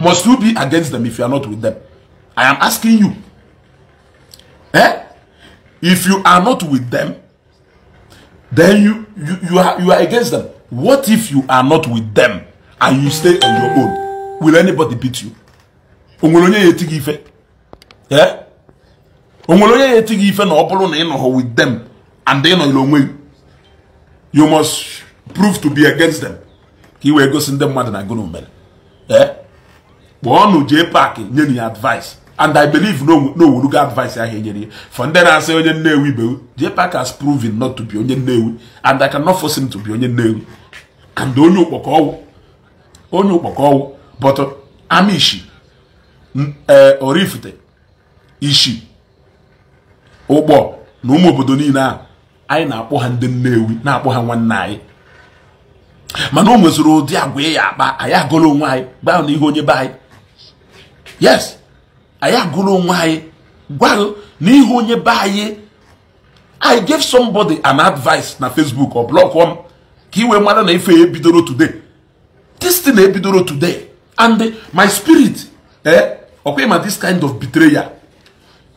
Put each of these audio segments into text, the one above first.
must you be against them if you are not with them i am asking you eh if you are not with them then you you you are you are against them what if you are not with them and you stay on your own will anybody beat you onwere onye ya etighị ife eh onwere onye ya ife na ọ bụrụ na ị with them and ị nọnyere onwe you must prove to be against them ka i wee gosi them mmadụ na gụnụ mere eh kpọọ nụ jee paakị nye ya advice and i believe n'owurugo advice ahụ enyere ya for ndị na-asị onye nnewu be jee paak has proven not to be onye nnewi and i cannot force him to be onye nnewi and onye ụkpọkọ ọwụ onye ụkpọkọ ọwụ but uh, amishi ee eh, orifite ishi ụgbọ na ụmụ obodo niile ahụ anyị na-akpọ ha ndị nnewi na-akpọ ha nwanne anyị mana o nweziri ụdị agwa e ya akpa anyị agụla onwe anyị gbaa ihe onye be anyị yes I agụrụ onwe anyị gwarụ n'ihu onye be anyị i gave somebody an advice na facebook ọ blọkụọ m ka iwe mara na ife ebidoro today this thing ebidoro today and my spirit eh ọkwa ma this kind of betrayal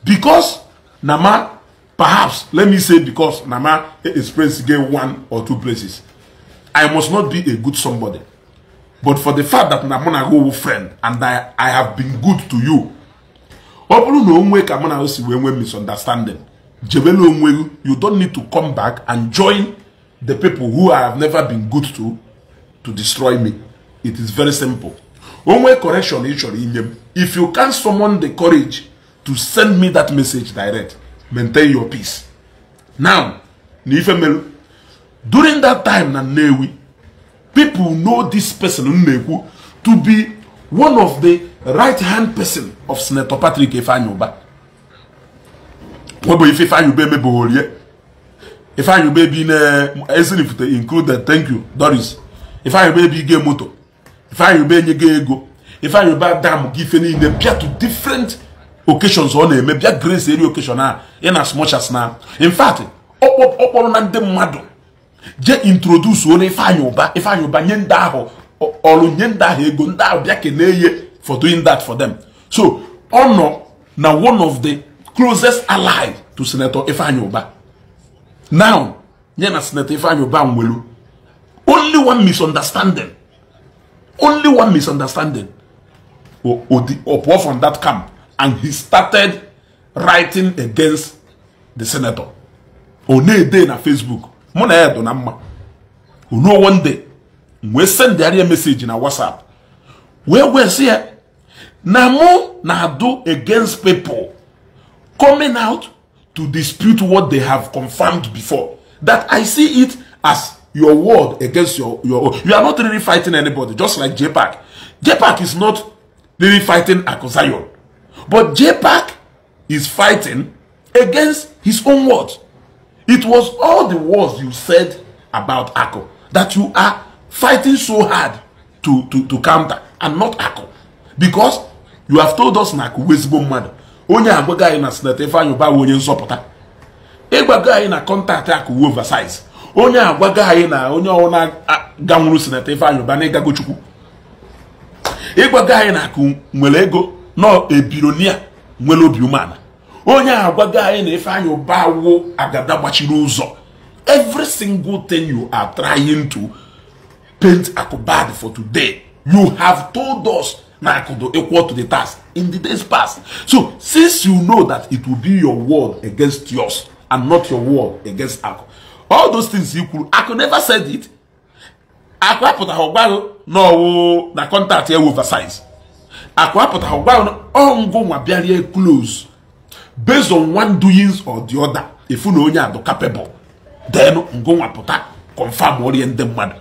because na ma perhaps let me say because na ma experience get one or two places i must not be a good somebody but for the fact that na mụ na gị owu friend and I, I have been good to you ọ bụrụ na onwe ka mụ na gị si wee nwee misunderstanding jebela onwe gị you don't need to come back and join the people who I have never been good to to destroy me it is very simple onwe correction ị chọrọ inye m if you can summon the courage to send me that message direct maintain your peace now na ife meru during that time na Nnewi people know this person Nneku to be one of the right hand person of Senator Patrick Ifeanyuba. Webo ife Ifeanyuba emeboholie. Ifeanyuba bi na Ezinifute included thank you Doris. Ifeanyuba bi ge moto. Ifeanyuba enye ge ego. Ifeanyuba dam gi ife niile bịa to different occasions ọ na-eme bịa grace eri occasion Ah, in as much as na in fact ọ kpọrọ na ndị mmadụ je introduce onye ifeanyị ụba ifeanyị ụba nye ndị ahụ ọrụ nye ndị ahụ ego ndị ahụ bịa kelee ihe for doing that for them so ọ nọ na one of the closest ally to senator ifeanyị ụba now nye na senator ifeanyị ụba nwelu only one misunderstanding only one misunderstanding or pụọ from that camp and he started writing against the senator ọ na-ede na facebook mụ na ya dụ na mma ruo one day wee sendịarịa meseji na whatsapp wee gwesị ya na mụ na-adụ against people coming out to dispute what they have confirmed before that i see it as your word against your your own. you are not really fighting anybody just like jpac jpac is not really fighting akuzayon but jpac is fighting against his own words It was all the words you said about Akko that you are fighting so hard to, to, to counter and not Akko, Because you have told us na akụ wezigbo mmadụ onye agwago anyị na sineta Ifeanyi Ubah onye nzọpụta ịgwago anyị na kọntaktị akụ oversize onye agwago anyị na onye ọwụna ganwuru sineta Ifeanyi Ubah na ịgago Chukwu ịgwago anyị na akụ nwere ego na ebironia nwere obi umeala onye agwa gị anyị na ife anyị ụba awụ agada gbachiri ụzọ every single thing you are trying to paint akụbad for today you have told us na akụdo equal to the task in the days past so since you know that it will be your word against yours and not your word against akụ all those things you kwuru akụ never said it akụ apụtaghị ọgbaghị n'ọwụ na kọntaktị ya oversize akụ apụtaghị ọgbaghị ọngụ nwa bịarie close based on one doings or the other ifu na onye adụ capable then ngụnwa pụta confam orie ndị mmadụ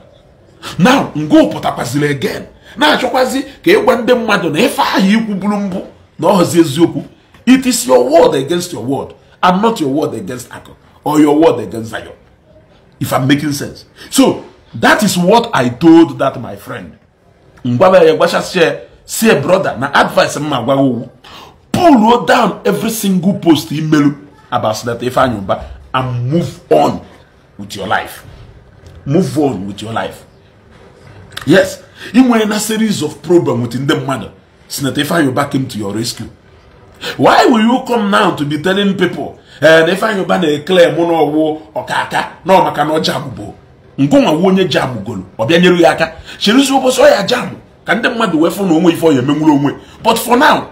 now ngụ pụtakwaziri again na-achọkwazi ka ịgwa ndị mmadụ na ife ahụ ikwu bụrụ mbụ na ọhụzi eziokwu it is your word against your word and not your word against akụ or your word against zion if i'm making sense so that is what i told that my friend ngwaba ya gwachasịa sie brother na advice m ma agwaghị pull down every single post imelu about Senator Ifeanyi and move on with your life move on with your life yes ị nwere na series of problem with ndị mmadụ Senator Ifeanyi came to your rescue why will you come now to be telling people na eh, Ifeanyi Ubah na-eclaim oh, na ọwụ ọkaka na ọ maka na ọ jabụbo ngụnwa wu onye jabụgolo golo bịa nyere ya aka cherizi ụbọchị ọ ya jabụ ka ndị mmadụ wee fụ na onwe ife ọ ya emenwuru onwe but for now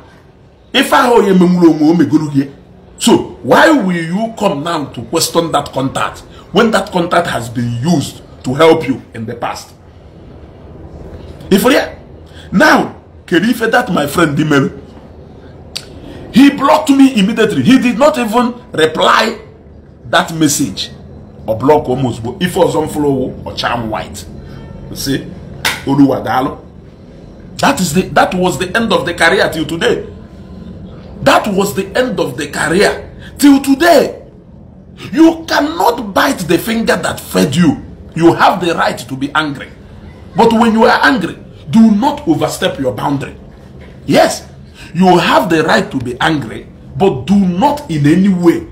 ife ahụ onye menwuru onwe o megoro gị so why will you come now to question that contact when that contact has been used to help you in the past ifere now kedu ife that my friend dị mere he blocked me immediately he did not even reply that message or block almost but ife ọzọ m ọcham white say oluwa daalụ that is the that was the end of the career till today That was the end of the career. Till today, you cannot bite the finger that fed you. You have the right to be angry. But when you are angry, do not overstep your boundary. Yes, you have the right to be angry, but do not in any way,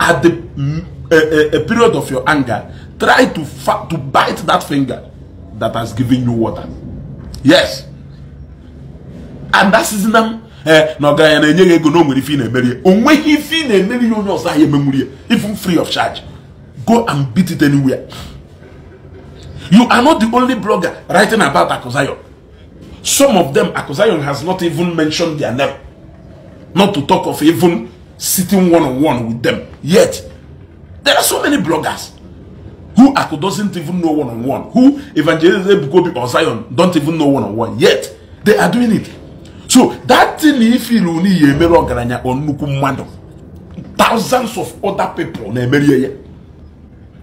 at the mm, a, a period of your anger, try to, to bite that finger that has given you water. Yes. And that is them Eh, na ọga ya na-enye ya ego na o nwere ife ị na-emeri ya o nweghị ife ị na-emeri ya onye ọzọ ahịa emenwuri ya even free of charge go and beat it anywhere you are not the only blogger writing about Akuzayon some of them Akuzayon has not even mentioned their name not to talk of even sitting one on one with them yet there are so many bloggers who Aku doesn't even know one on one, who Evangelist Ebukobi or Zion don't even know one on one, yet they are doing it. So that that na ifil unu ya emere ọgaranya kpọ nnukwu mmadụ thousands of other people na-emerie ya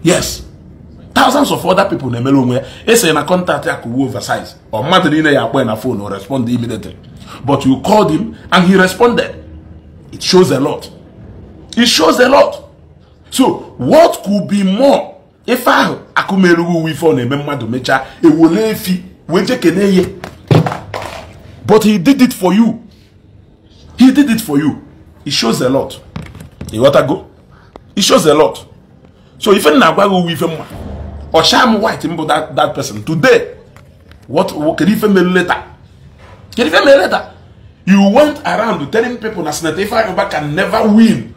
yes thousands of other people na-emere onwe ya esere na kọntaktị ya over size ọ mmadụ niile ya akpọ na phone o respond immediately but you called him and he responded it shows a lot it shows a lot so what could be more ife ahụ akụmerughị uwe ife ọ na-eme mmadụ mechaa ewole efi wee jee ihe but he did it for you He did it for you. It shows a lot. You got go? It shows a lot. So if you nagwago with him, or sham white him that that person today, what, what can even later? Can even mail later? You went around telling people that Senator Ifeanyi can never win.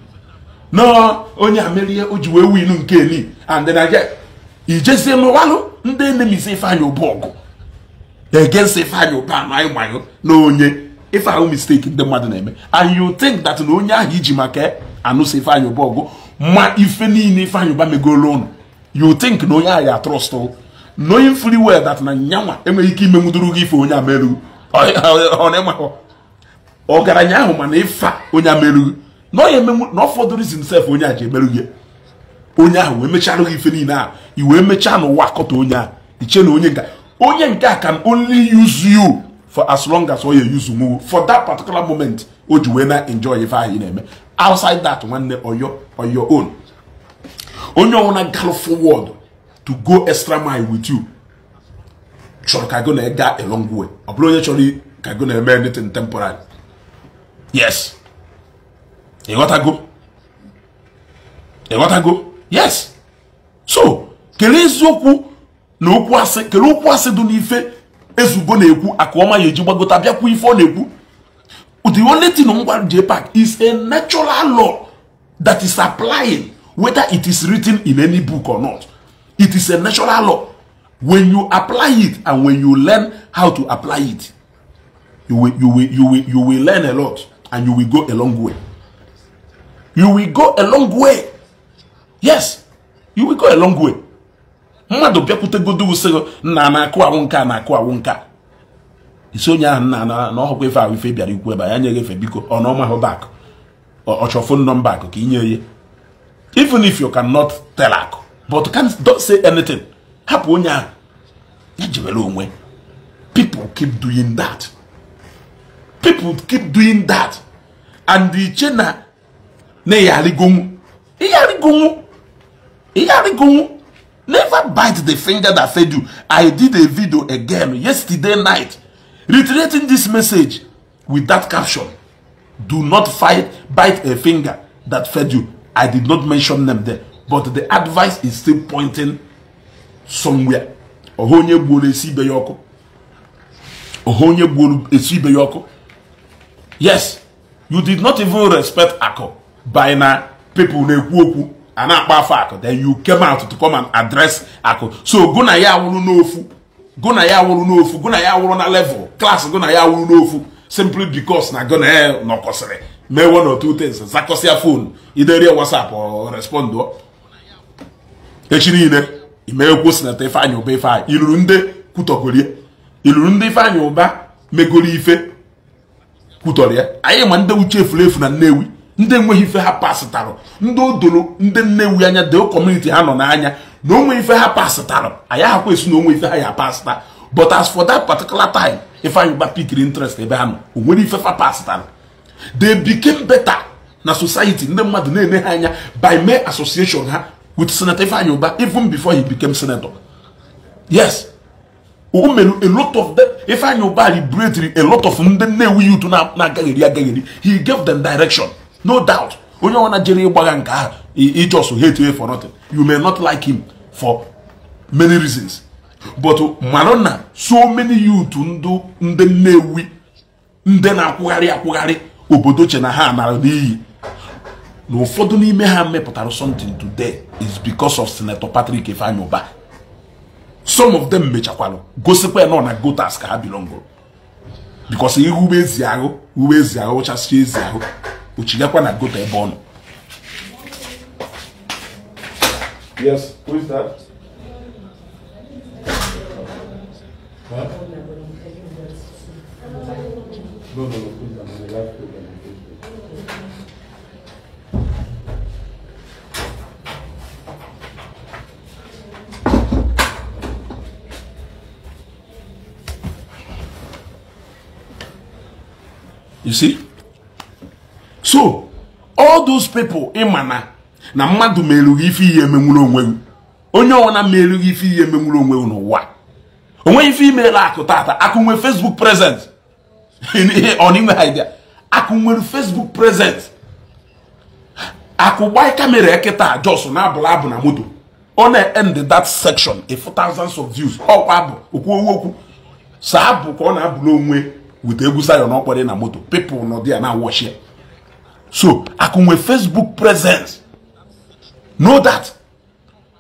No, only Amelia Ojiwe win Nkeli, and then I get. You just say no walu. Ndị enemy say Ifeanyi Obuogu. Against Ifeanyi Obanwayo na onye. ife ahụ mistake ndị mmadụ na-eme and you think that na onye ahụ iji maka anụsa ifeanyị ụba ọgụ ma ife niile ifeanyị ụba megolo ụnụ you think na onye ahụ ya trust knowing fully well that na nyanwa enweghị ike imenwuduru gị ife onye amerughị ọgaranya ahụ mana ife onye amerughị na ọ fọdụrụ izi onye a ji emerughị onye ahụ wee mechara gị ife niile ahụ i wee mechaa n'ụwa akọta onye ahụ iche na onye nke onye nke a can only use you for as long as oye use muwu for that particular moment o ji wee na enjoy ife ahụ ị na-eme outside that nwanne oyo your own onye ọnwụna gal forward to go extra mile with you chọrọ ka go na ga along way ọ bụrụ onye chọrọ ka go na-eme anything temporary yes ịghọtago ịghọtago yes so kelee eziokwu na okwu asị kelee okwu asị dị n'ife ezugo na-ekwu aka ọma ya eji gbagota bịakwa ife ọ na-ekwu the only thing on gwara jpac is a natural law that is applying whether it is written in any book or not it is a natural law when you apply it and when you learn how to apply it you will, you will, you will, you will learn a lot and you will go a long way you will go a long way yes you will go a long way mmadụ bịakwute bịakwutegodo usoro nna na-akụawụ nka na-akụawụ nka isi onye ahụ nna na na ọhụkwa ife ahụ ife bịara ikwu ebe ya nyeghị efe biko ọ nọma hụ bak ọchọ fon nọmba akụ ka inye ihe even if you cannot tell akụ but can don't say anything hapụ onye ahụ ya jebere onwe people keep doing that people keep doing that and iche na na ihe arịgonwu ihe arịgonwu Never bite the finger that fed you. I did a video again yesterday night reiterating this message with that caption. Do not fight, bite a finger that fed you. I did not mention them there, but the advice is still pointing somewhere. Ọha onye gbuoro esi ibe ya ọkụ. Ọha onye gbuoro esi ibe ya ọkụ. Yes, you did not even respect Akọ by na people na-ekwu okwu. a na-akpa afọ akụ then you came out to come and address akụ so gụ na ya awụrụ n'ofu gụ na ya awụrụ n'ofu gụ na ya awụrụ na level klas gụ na ya awụrụ n'ofu simply because na gụ na ya nọkọsịrị mee one or two things zakọsịa phone iderie whatsapp respond echi niile ụba iluru ndị kwutọgorie iluru ndị ụba megoro ife anyị ma ndị uche efuru efu na nnewi ndị enweghị ife ha pasịtarụ ndị odoro ndị nnewi anya deo kọmuniti ha nọ n'anya na onwe ife ha pasịtarụ anya ahakwa esi na onwe ife ha ya pasịta but as for that particular time ifeanyị gba pikiri interest ebe ha nọ o nwere ife fa pasịtarụ they became better na society ndị mmadụ na eme ha anya by mere association ha with senator ifeanyị ụba even before he became senator yes o mere a lot of them ifeanyị ụba liberatri a lot of ndị nnewi youth na-agagheri agagheri he gave them direction no doubt onye ọbụla jere ịgbagha nke ahụ ijos hate you for nothing you may not like him for many reasons but mara na so many youth ndụ ndị ewi ndị na-akwụgharị akwụgharị obodo che na ha nara n'iyi na ụfọdụ n'ime ha mepụtara something today is because of senator patrick ifeanyụba some of them mechakwalụ gosikwa ya nọ na gotas ka ha bilongo because ihe ugbo ezi ahụ ezi ahụ ụchasịa ezi ahụ ochinyekwa na gota ebe ọ Yes, who is that? You see? so all those people ịma na na mmadụ ma erughị ife ihe emenwuru onwe gị onye ọwụla ma erughị ife ihe emenwuru onwe gị n'ụwa onweghị ife imeela akụ tata akụ nwere facebook present ọnịnwe idea akụ nwere facebook present akụ gbaa kamera ekịta jos na-abụla abụ na moto ọ na-end that section if thousands of views ọkwa abụ okwu owu okwu saa abụ ka ọ na abụ n'onwe wute egwu sayo na ọkpọrị na moto people nọ dị ya na wọchie so akụnwe facebook presence know that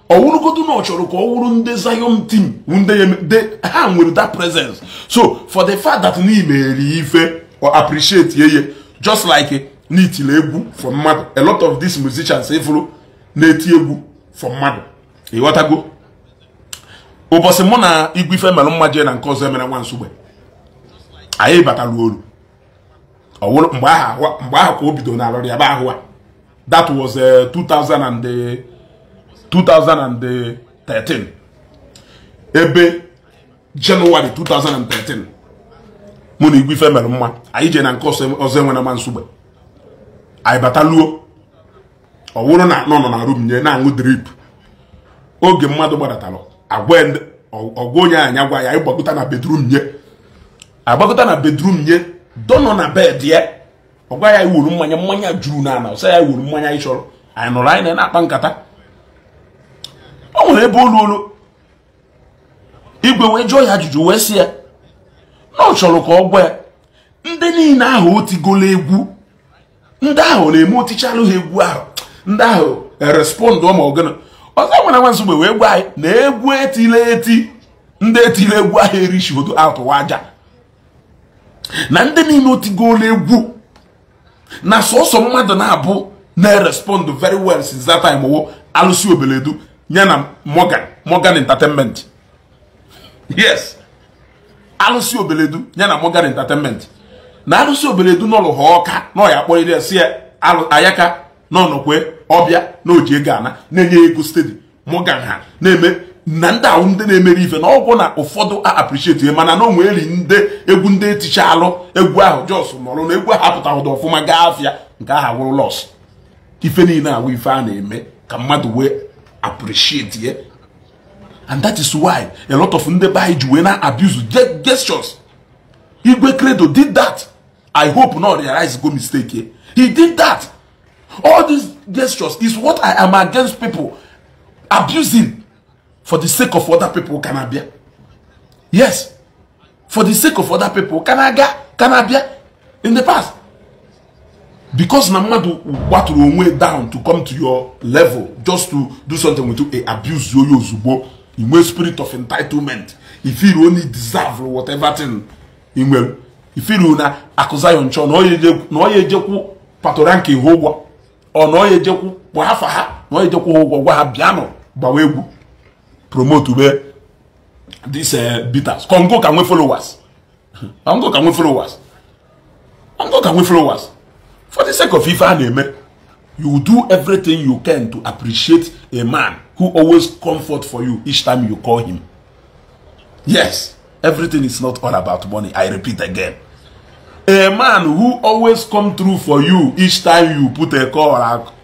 ọwụrụgodu na ọ chọrọ ka ọ wụrụ ndị zion team ndị ha nwere that presence so for the fact that n'imeri ife or appreciate ye just like n'itile egwu for mmadụ a lot of these musicians ifuru na-eti egwu for mmadụ ịghọtago ụbọchị mụ na igwe ife mere mma na nke ọzọ emere nwa nsogbe anyị batara olu ọwụrụ mgbe aha mgbe ahụ ka o bido na alọrị ebe ahụ a that was 2013 eh, ebe jenụwarị 2013 mụ na Igwe Ife mere mma anyị jee na nke ọzọ enwe na ma nsogbe anyị bataluo ọwụrụ na nọ nọ na rum nye na-aṅụ drip oge mmadụ gbadatalụ agwa onye anyị agwa ya anyị gbakọta na bedrum nye agbakọta na bedrum nye dọ nọ na bed ya ọ gwa ya iwuru mmanya mmanya juru n'ala ọsọ ya iwuru mmanya ị chọrọ anyị nụrụ anyị na-akpa nkata ọ nwere ebe olu olu igwe wee jụọ ya ajụjụ wee sị ya na ọ chọrọ ka ọ gwa ya ndị niile ahụ o egwu ndị ahụ na-eme otichalụ ha egwu ahụ ndị ahụ erespọndụ ma ọgana ọzọ nwere nwa nsogbe wee gwa anyị na egwu etila eti ndị etila egwu ahụ erichigodo atụwa aja na ndị niile otigola egwu na sọsọ mmadụ na-abụ na-erespond very well since that time wo alụsị obeledu nye na Morgan Morgan Entertainment yes alụsị obeledu nye na Morgan Entertainment na alụsị obeledu n'ọlụ ha ọka na ọ ya si ayaka n'ọnọkwe ọbịa na oji ego ana na-enye ego stedi Morgan ha na-eme na ndị ahụ ndị na-emere ife na ọgwụ na ụfọdụ a appreciate mana na onwe eri ndị egwu ndị eticha alụ egwu ahụ jos nọrụ na egwu ahụ apụtahụda ọfụma gaa afịa nke ahụ wụrụ lọs ife niile awụ ife a na-eme ka mmadụ wee appreciate ya and that is why a lot of ndị be anyị ji wee na abuse gestures igwe credo did that i hope not realize go mistake he did that all these gestures is what i am against people abusing for the sake of other people can be? yes for the sake of other people can I get? can I be? in the past because na what, gbatụrụ onwe down to come to your level just to do something with you A e abuse you in inwe e spirit of entitlement if e you only deserve whatever thing inwe ifiri na akụza ya nchọ na ọ no, ejekwu no, nke ihe ụgwọ ọ na no, ya ejekwu bụ afa ha no, ọ ya ejekwu ha ụgwọ gwa ha bịanụ gbawa egwu promote ube these eh, bitters kongo ka nwee followers kongo ka nwee followers kongo followers for the sake of ife eme you do everything you can to appreciate a man who always comfort for you each time you call him yes everything is not all about money i repeat again a man who always come through for you each time you put a call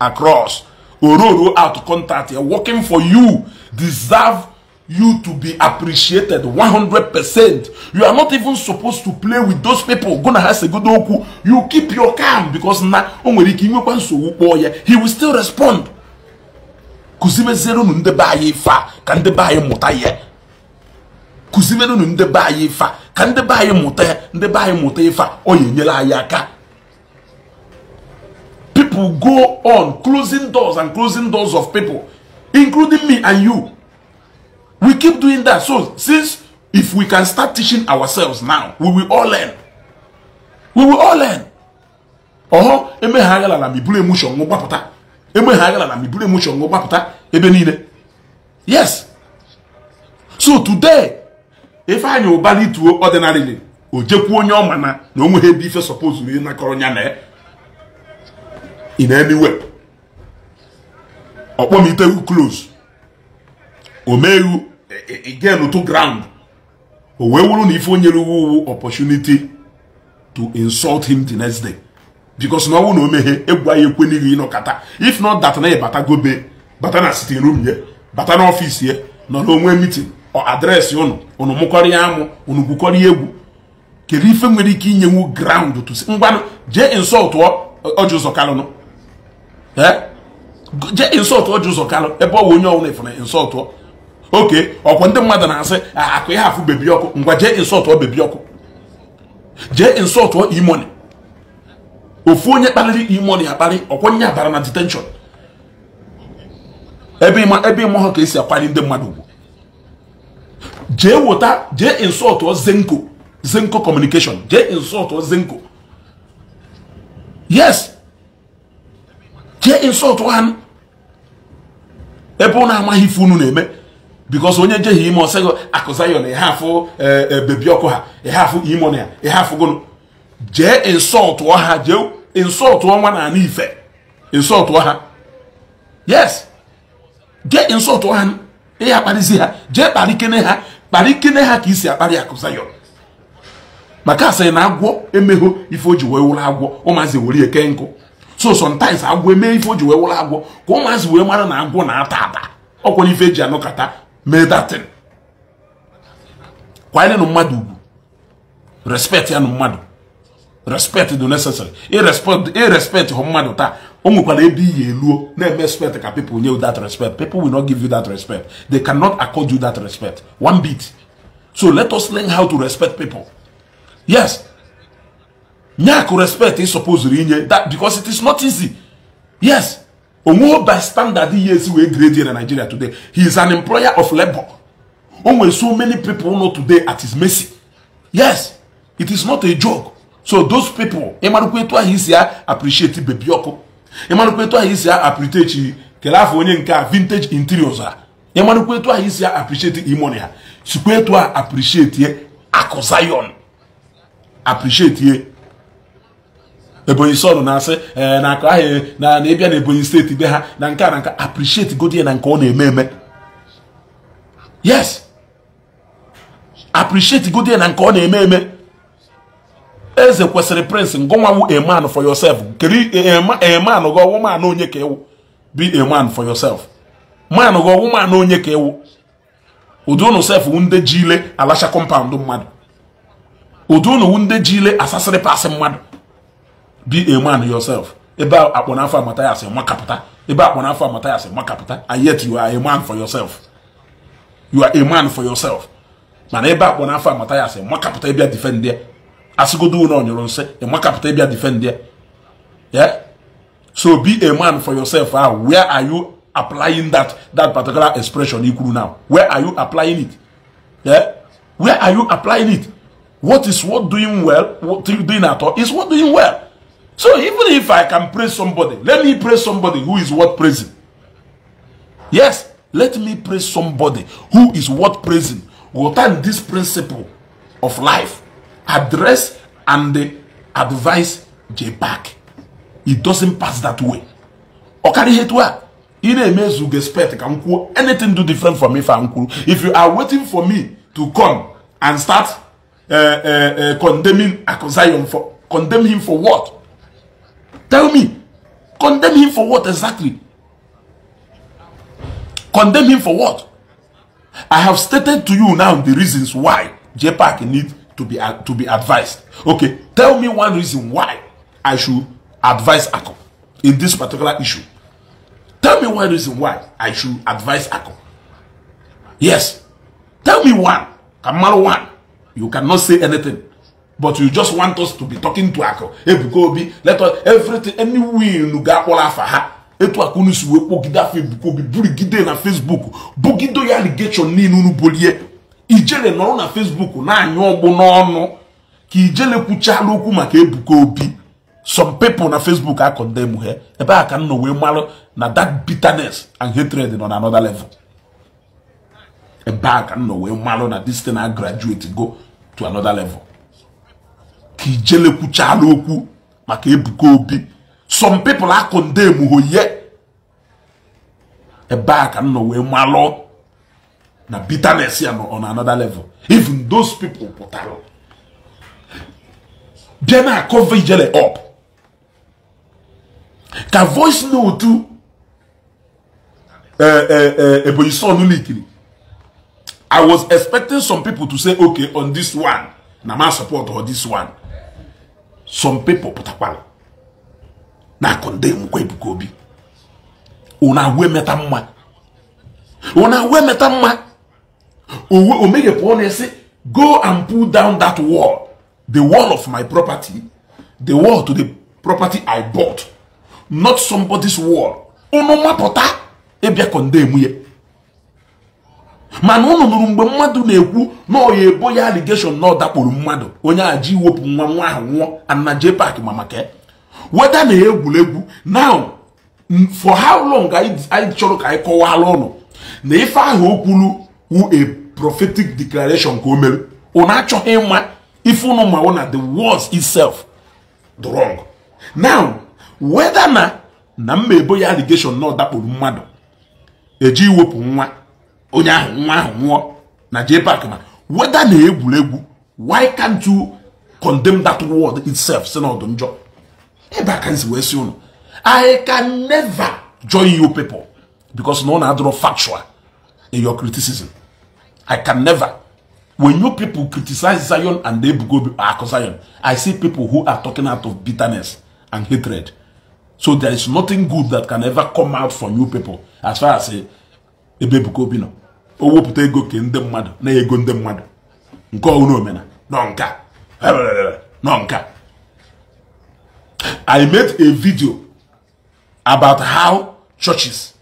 across ororo out contact working for you deserve you to be appreciated 100%. You are not even supposed to play with those people. Go na a good oku. You keep your calm because na he will still respond. Kuzimezero nunde ba yifa anyị ba ka ye. anyị mụta ya. yifa be anyị mụta nde o ya enyela anyị aka. People go on closing doors and closing doors of people. including me and you. We keep doing that. So since if we can start teaching ourselves now, we will all learn. We will all learn. Ọhọ emeghaghala na miburu emushọ nwụ gbapụta. Emeghaghala na miburu emushọ nwụ gbapụta ebe niile. Yes. So today, ife anyị ụbali tuo ordinarily, o jekwuo onye ọ ma na na o nweghị ebe ife suppose na ịnakọrọ ya in any way. ọkpọmitewu close omeghu again e, e, e, to ground o wee wụrụ na ife onyere uwe uwu opportunity to insult him the next day because na ọnwụ na omeghe egwu anyị ekwe ekwenighi ịnọkata if not that na ịbata gobe bata na sitting room ye bata n'ọfịs ye nọ n'onwe meeting ọ adreesị ụnụ ụnụ mụkọrịa amụ ụnụ gwukọrịa egwu kedu ife nwere ike inye inyenwu ground to ngwanụ jee insult ọ ọjụ ụzọ kalụnụ ee jee insọltụ ọjị ụzọ kalụ ebe ọ bụ onye ọbụla ifere insọltụ oke ọkwa ndị mmadụ na-asị akụ ya afụ bebi ọkụ ngwa jee insọltụ bebi ọkụ jee insọltụ imoni ofu onye kpaliri imoni akpali ọkwa nye abara na detenshọn ebe ịma ebe ha ka esi akwanye ndị mmadụ ugwu jee wota jee insọltụ zenko zenko kọmunikeshọn jee insọltụ zenko yes jee insọltụ ha ebe ụnụ amaghị ife unu na-eme bikos onye njeghị ime ọsego akụzayọn ihe afụ e, e, bebi ọkụ ha ihe afụ imon ya ihe jee insọltụ ọha jee insọltụ ọnwa na ana ife insọltụ ọha yes jee insọltụ ọha ihe akparịzi ha jee kparịkene ha kparịkene ha ka isi akparị akụzayọn maka asị na agwọ emegho ife o ji wee wụrụ agwọ ụmụazị were eke nkụ so sometimes agwọ eme ife o ji wee wụrụ agwọ ka ụmụazị wee mara na agwọ na-ata ata ọkwara ife eji anọkọta mee datin kwanyere mmadụ ugwu respect ya na mmadụ respect dị necessary irrespect e e hụ mmadụ taa o nwekwara ebe iyi eluo na-eme respect ka people nye you that respect people will not give you that respect they cannot accord you that respect one bit so let us learn how to respect people yes nyaku respect ị supposed inye that because it is not easy yes onwe by standard ihe esi wee grade in nigeria today he is an employer of labour. o nwere so many people know today at his mercy yes it is not a joke so those people ịmarụkwa etu ahụ isi ya appreciate bebi ọkụ ịmarụkwa etu ahụ isi ya apritechi kele afọ onye nke a vintage interiors a ịmarụkwa etu ahụ isi ya apreciate imoni ha sikwa etu a appreciate akụ zion apreciate ebonyi sọnụ na-asị ee eh, na akụ ahụ na na ịbịa na ebonyi steeti be ha na nke a na nka appreciate godie na nke ọ na-eme eme yes appreciate godie na nke ọ na-eme eme eze kwesịrị prince ngụnwanwu a man for yourself kiri a man gị ọwụ man onye ka ịwụ be a man for yourself man gị ọwụ man onye ka ịwụ ụdị ụnụ sef ndị ji ile alacha kọmpaụndụ mmadụ ụdị ụnụ ndị ji ile asasịrị pasị mmadụ be a man yourself ebe akpọna afọ amata ya sị makapụta ebe akpọna afọ amata ya sị makapụta and yet you are a man for yourself you are a man for yourself mana ebe akpọna afọ amata ya sị makapụta ịbịa defend ya asịgodo ụlọ ọnyụrụ nsị ịmakapụta ịbịa defend there. yeah so be a man for yourself ah where are you applying that that particular expression ikuru now where are you applying it yeah where are you applying it what is what doing well what doing at all is what doing well So even if I can praise somebody, let me praise somebody who is worth praising. Yes, let me praise somebody who is worth praising. Will turn this principle of life, address and advise J back. It doesn't pass that way. Okari Hetwa, in a mezu respect, can anything do different for me I'm cool. If you are waiting for me to come and start uh, uh, uh, condemning Akozion for condemn him for what? Tell me. Condemn him for what exactly? Condemn him for what? I have stated to you now the reasons why JPAC need to be, to be advised. Okay, tell me one reason why I should advise ACO in this particular issue. Tell me one reason why I should advise ACO. Yes. Tell me one. Kamaro one. You cannot say anything. but you just want us to be talking to akụ Ebuka Obi let us everything any win ga-akpọrọ afa ha etu aka unu si wee kpogide afọ Ebuka Obi burigide na Facebook bugido ya allegation niile unu bolie ijele nọrọ na Facebook na anya ọgbụ n'ọnụ ka ijele kwuchala okwu maka Ebuka Obi some people na Facebook a he ebe a ka m wee marụ na that bitterness and hatred nọ na another level ebe a ka m nọ wee marụ na this thing na graduate go to another level ka ijelekwuchala okwu maka Ebuka Obi some people akondem emuhoye ebe a ka m nọ wee malụ na bitterness ya nọ on another level even those people pụtara bịa na-akọva ijele up ka voice note e, e, e, Ebonyi son likiri I was expecting some people to say okay on this one na ma support or this one some people put up na-akụ ndị nkwa ebuka obi ụna agwa emeta mma ụna we emeta mma o meghị pụọ na-esi go and pull down that wall the wall of my property the wall to the property i bought not somebody's wall ụnụ mapụta ịbịa condemn ya mana ụnụ nụrụ mgbe mmadụ na-ekwu na ọya ebo ya aligeshọn na ọ dakpuru mmadụ onye a ji iwepụ nwa nwa ahụ nwụọ ana park ma maka weda na egwuregwu now for how long anyị chọrọ ka anyị kọwala ụnụ na ife ahụ o kwuru wu a prophetic declaration ka o mere ụnụ achọghị ịma ife ụnụ mawụ na the words itself the wrong now weda na na mma ebo ya aligeshọn na ọ dakpuru mmadụ eji iwepụ nwa onye ahụ nwa ahụ nwụọ na JPAC ma weda na egwuregwu why can't you condemn that word itself si n'ọdụ njọ ebe aka nsi wee si ụnụ I can never join you people because na ọ na-adọrọ factual in your criticism I can never when you people criticize Zion and Ebugo ah, Ako Zion I see people who are talking out of bitterness and hatred so there is nothing good that can ever come out from you people as far as eh, Ebugo Bino. ego ke ndị mmadụ na-ego ndị mmadụ nke omena I made a video about how churches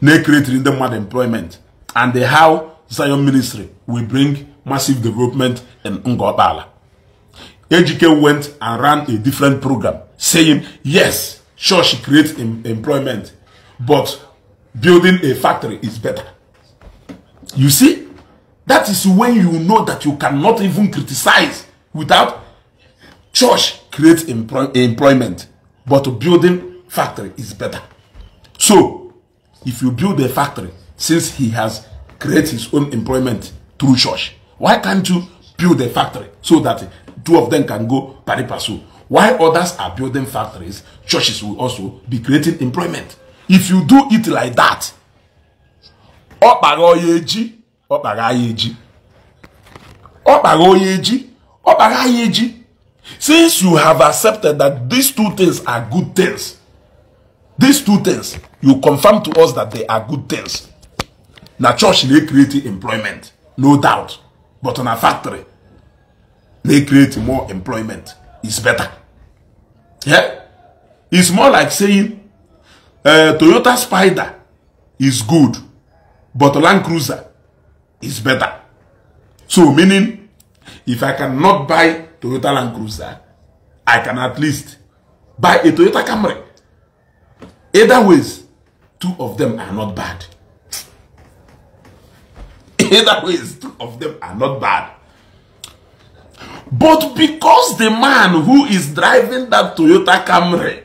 na-ekretiri ndị mmadụ employment and how Zion ministry will bring massive development in Ngopala. Ejike went and ran a different program saying, yes, church creates employment, but building a factory is better. You see, that is when you know that you cannot even criticize without church creates employ employment, but building factory is better. So, if you build a factory, since he has created his own employment through church, why can't you build a factory so that two of them can go pari passu? Why others are building factories, churches will also be creating employment if you do it like that ọ kpara onye eji ọ kpara anyị eji ọ kpara onye eji ọ kpara anyị eji since you have accepted that these two things are good things these two things you confirm to us that they are good things na church na create employment no doubt but na factory na create more employment is better yeah? it's more like saying uh, Toyota Spider is good, but Land Cruiser is better. So meaning, if I cannot buy Toyota Land Cruiser, I can at least buy a Toyota Camry. Either ways, two of them are not bad. Either ways, two of them are not bad. But because the man who is driving that Toyota Camry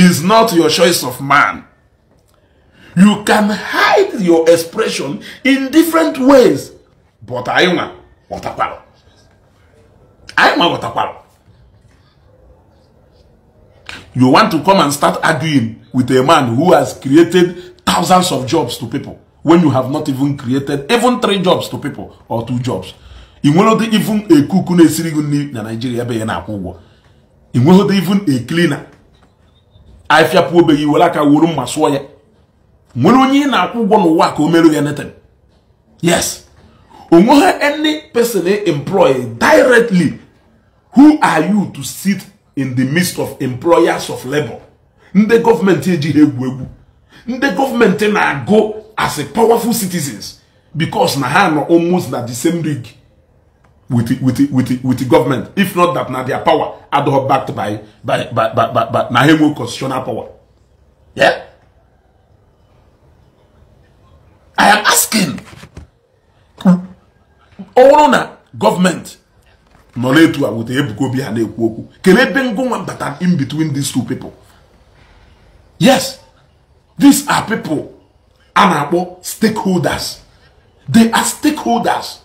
is not your choice of man. You can hide your expression in different ways. But I want watakwalo. I want You want to come and start arguing with a man who has created thousands of jobs to people when you have not even created even three jobs to people or two jobs. Inwelode even a cook na na Nigeria even a cleaner afịapụ obeghị nwere aka wuru mma sụọ ya nwere onye ị na-akwụ ụgwọ n'ụwa ka o mere ya netan yes onwe ha any person employ directly who are you to sit in the midst of employers of labor ndị gọọmenti ejighị egwu egwu ndị gọọmenti na-agụ as a powerful citizens because na ha nọ almost na the same league with the, with the, with the, with the government. If not that, now their power are all backed by by by by, by, by Nahemo constitutional power. Yeah. I am asking. Ọrụ na gọọmenti nọ n'etu a wụta ebugo obi ha na-ekwu okwu kelee ebe ngụnwa bata in between these two people. Yes, these are people and na stakeholders. They are stakeholders.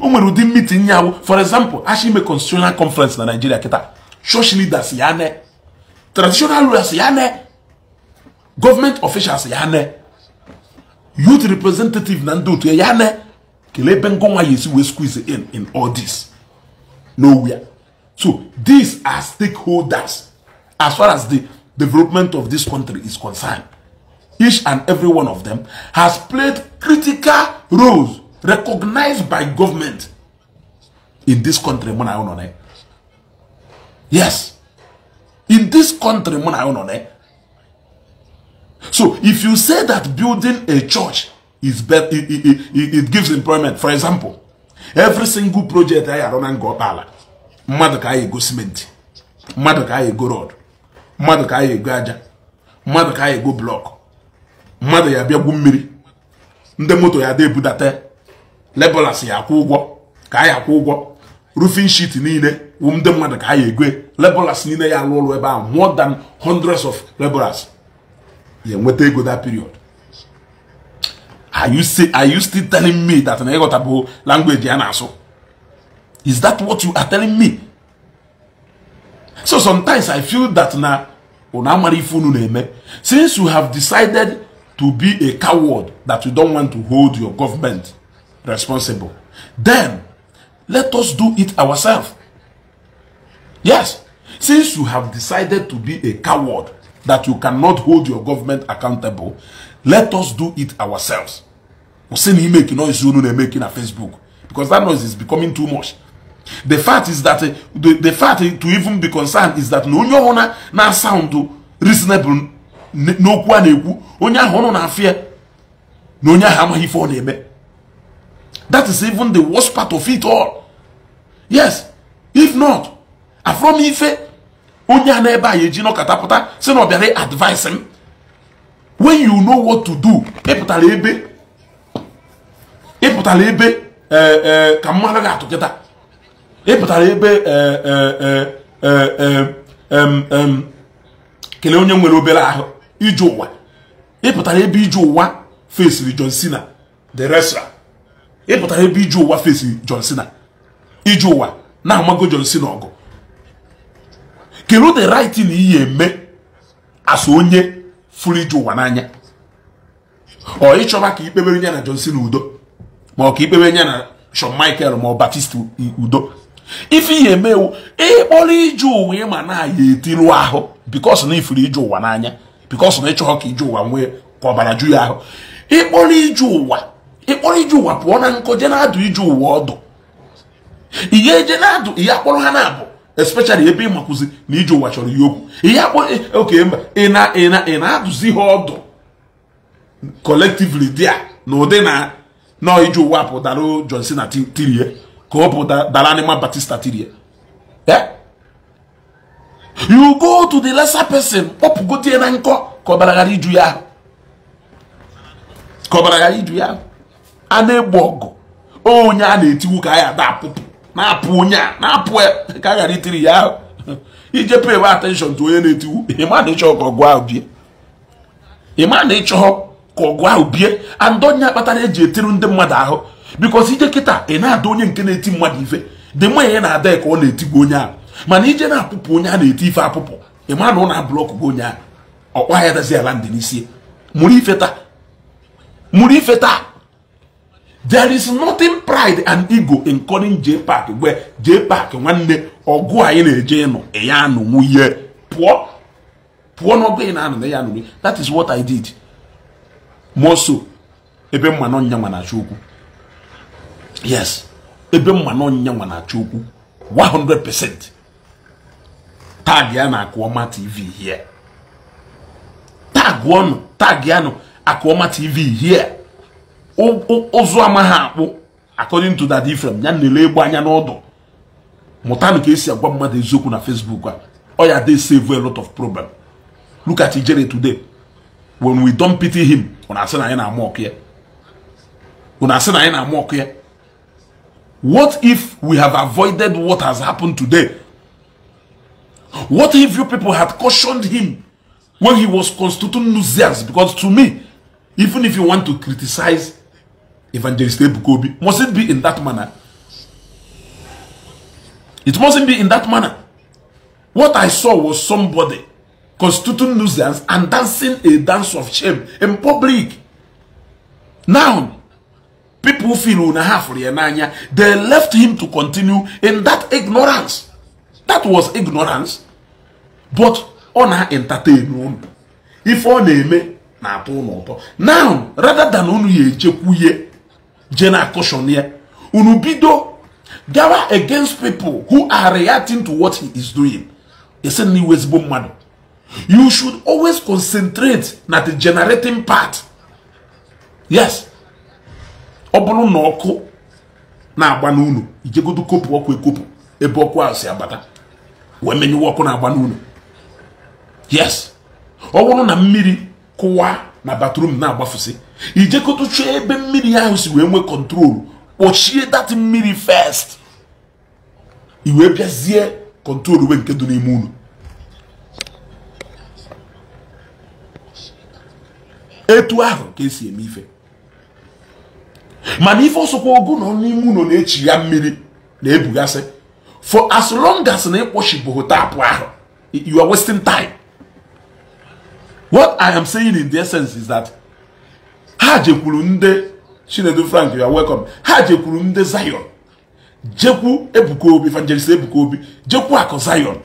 o nwere ụdị meeting ya awụ for example ashi ime constitutional conference na Nigeria kịta church leaders ya ne traditional rulers ya ne government officials ya ne youth representative na ndị otu ya ne kelee ebe ngọnwa ya esi wee squeeze in in all this nowhere so these are stakeholders as far as the development of this country is concerned each and every one of them has played critical roles recognized by government in this country yes in this country so if you say that building a church is better it, it, it, it gives employment for example every single project anyị arụ na nga ọkpala mmadụ ka anyị ego cementi mmadụ ka anyị ego rod mmadụ ka anyị ego aja mmadụ ka anyị ego blọk mmadụ ya bịagwu mmiri ndị moto ya da ebudata laborers ya akwụ ụgwọ ka anyị akwụ ụgwọ roofing sheet niile wụ ndị mmadụ ka anyị egwe laborers niile ya alụ ụlọ ebe ahụ more than hundreds of laborers ya enweta ego that period are you say are you still telling me that na ịghọta bụ language ya na-asụ is that what you are telling me so sometimes i feel that na unu amara ife unu na-eme since you have decided to be a coward that you don want to hold your government responsible. Then, let us do it ourselves. Yes, since you have decided to be a coward that you cannot hold your government accountable, let us do it ourselves. Osini make noise you know making a Facebook because that noise is becoming too much. The fact is that the, fact to even be concerned is that no one na sound reasonable n'okwu a na-ekwu onye ahụ na afịa na onye ahụ amaghị ife ọ eme That is even the worst part of it all. Yes. If not, Afrom Ife, onye n'ebe a eji nọkọta pụta si na ọ bịara advice m. When you know what to do, ịpụtara ebe ịpụtara ebe eh, eh, ka mmadụ ga-atụ kịta ịpụtara ebe eh, kelee onye nwere obere ahụ ije ụwa ịpụtara ebe ije ụwa fesiri John Cena the wrestler ịpụta ebe iju ụwa fesiri John Cena iju ụwa na-amago John Cena ọgụ kedu the right na iyi eme asa onye furu iju ụwa n'anya ọ ịchọba ka ikpebere ya na John Cena udo ma ọ ka ikpebere ya na Shawn Michael ma ọ Batista udo ife ihe emewu ịkpọrọ iju ụwa ịma na aya etiru ahụ because na ifuru iju ụwa n'anya because na ịchọghọ ka iju ụwa nwee ka ọbara ju ya ahụ ịkpọrọ iju ụwa ịkpọrọ ije ụwa pụọ na nkọ je na-adụ ije ụwa ọdụ ihe eje na-adụ ihe akpọrọ ha na-abụ especially ebe ị makwụzi na ije ụwa chọrọ ihe okwu ihe akpọ e, oke mba ị na-adụzi ị ị na na ha ọdụ collectively dia na ụdị na nọọ ije ụwa pụtara John Cena tirie ka ọ pụta dara anịma Batista tirie eh? you go to the lesser person kpọpụgotie na nkọ ka ọ ka ọ bara ghara iju ya ahụ a na egbu ọgụ onye a na etiwu ka anyị ada apụpụ na-apụ onye a na-apụ ka a ghara itiri ya ahụ ije pay attention to onye na etiwu ịma na ịchọ ka ọgụ ahụ bie ịma na ịchọ ka ọgụ ahụ bie andị onye kpatara eji etiri ndị mmadụ ahụ bikos ije kịta ị na-ada onye nke na-eti mmadụ ife dị mma ihe na-ada ka ọ na-etigbu onye ahụ mana ije na-apụpụ onye a na-eti ife apụpụ ịma na ọ na-ablọk bụ onye ahụ ọkwa ya dazi ala ndị n'isi mụrụ ife taa mụrụ ife taa there is nothing pride and ego in calling J Park where J Park nwanne ọgụ anyị na-eje ịnụ ya anụ nwunye pụọ pụọ n'ọgụ ị na-anụ na ya that is what I did moso ebe mma na ọnya nwa na-achọ okwu yes ebe mma na ọnya nwa na-achọ okwu 100% tag ya na akụọma tv here tag ọnụ tag ya na akụọma tv here ụzụ amaghị akpụ according to that ifrem ya na-ele egbu anya n'ọdụ mụtanụ ka esi agwa mmadụ eziokwu na facebook a ọ ya dey save a lot of problem look at ijere today when we don pity him unu asị na anyị na-ama ọkụ ya unu asị na anyị na-ama ọkụ ya what if we have avoided what has happened today what if you people had cautioned him when he was constituting nuisance because to me even if you want to criticize Evangelist Ebukobi. Must it be in that manner? It mustn't be in that manner. What I saw was somebody constituting nuisance and dancing a dance of shame in public. Now, people feel una half they left him to continue in that ignorance. That was ignorance. But on her entertainment, if on me na atụ Now, rather than only ya General caution here. Unubido gather against people who are reacting to what he is doing. It's a new Westbom man. You should always concentrate on the generating part. Yes. Ọbụrụ na ọkụ na-agba n'unu ijegodo kopu ọkụ ekopụ ebe ọkụ ahụ abata wee menyewe ọkụ na-agba n'unu yes ọ na mmiri kụwa na bathroom na-agbafụsị ijekotucha ebe mmiri ahụ si wee nwee kọntrol kpọchie dat mmiri fest iwee bịazie kọntrol wee nke dị n'ime unu etu ahụ ka esi eme ife mana ife ọsọkwa ogo nọ n'ime unu na-echi ya mmiri na-ebugasị for as long as na ịkpọchibụghị taapụ ahụ you are wasting time what i am saying in the essence is that ha jekwuru ndị chinedu frank ya welcome ha jekwuru ndị zion jekwu ebuka obi evangelist ebuka obi jekwu akụ zion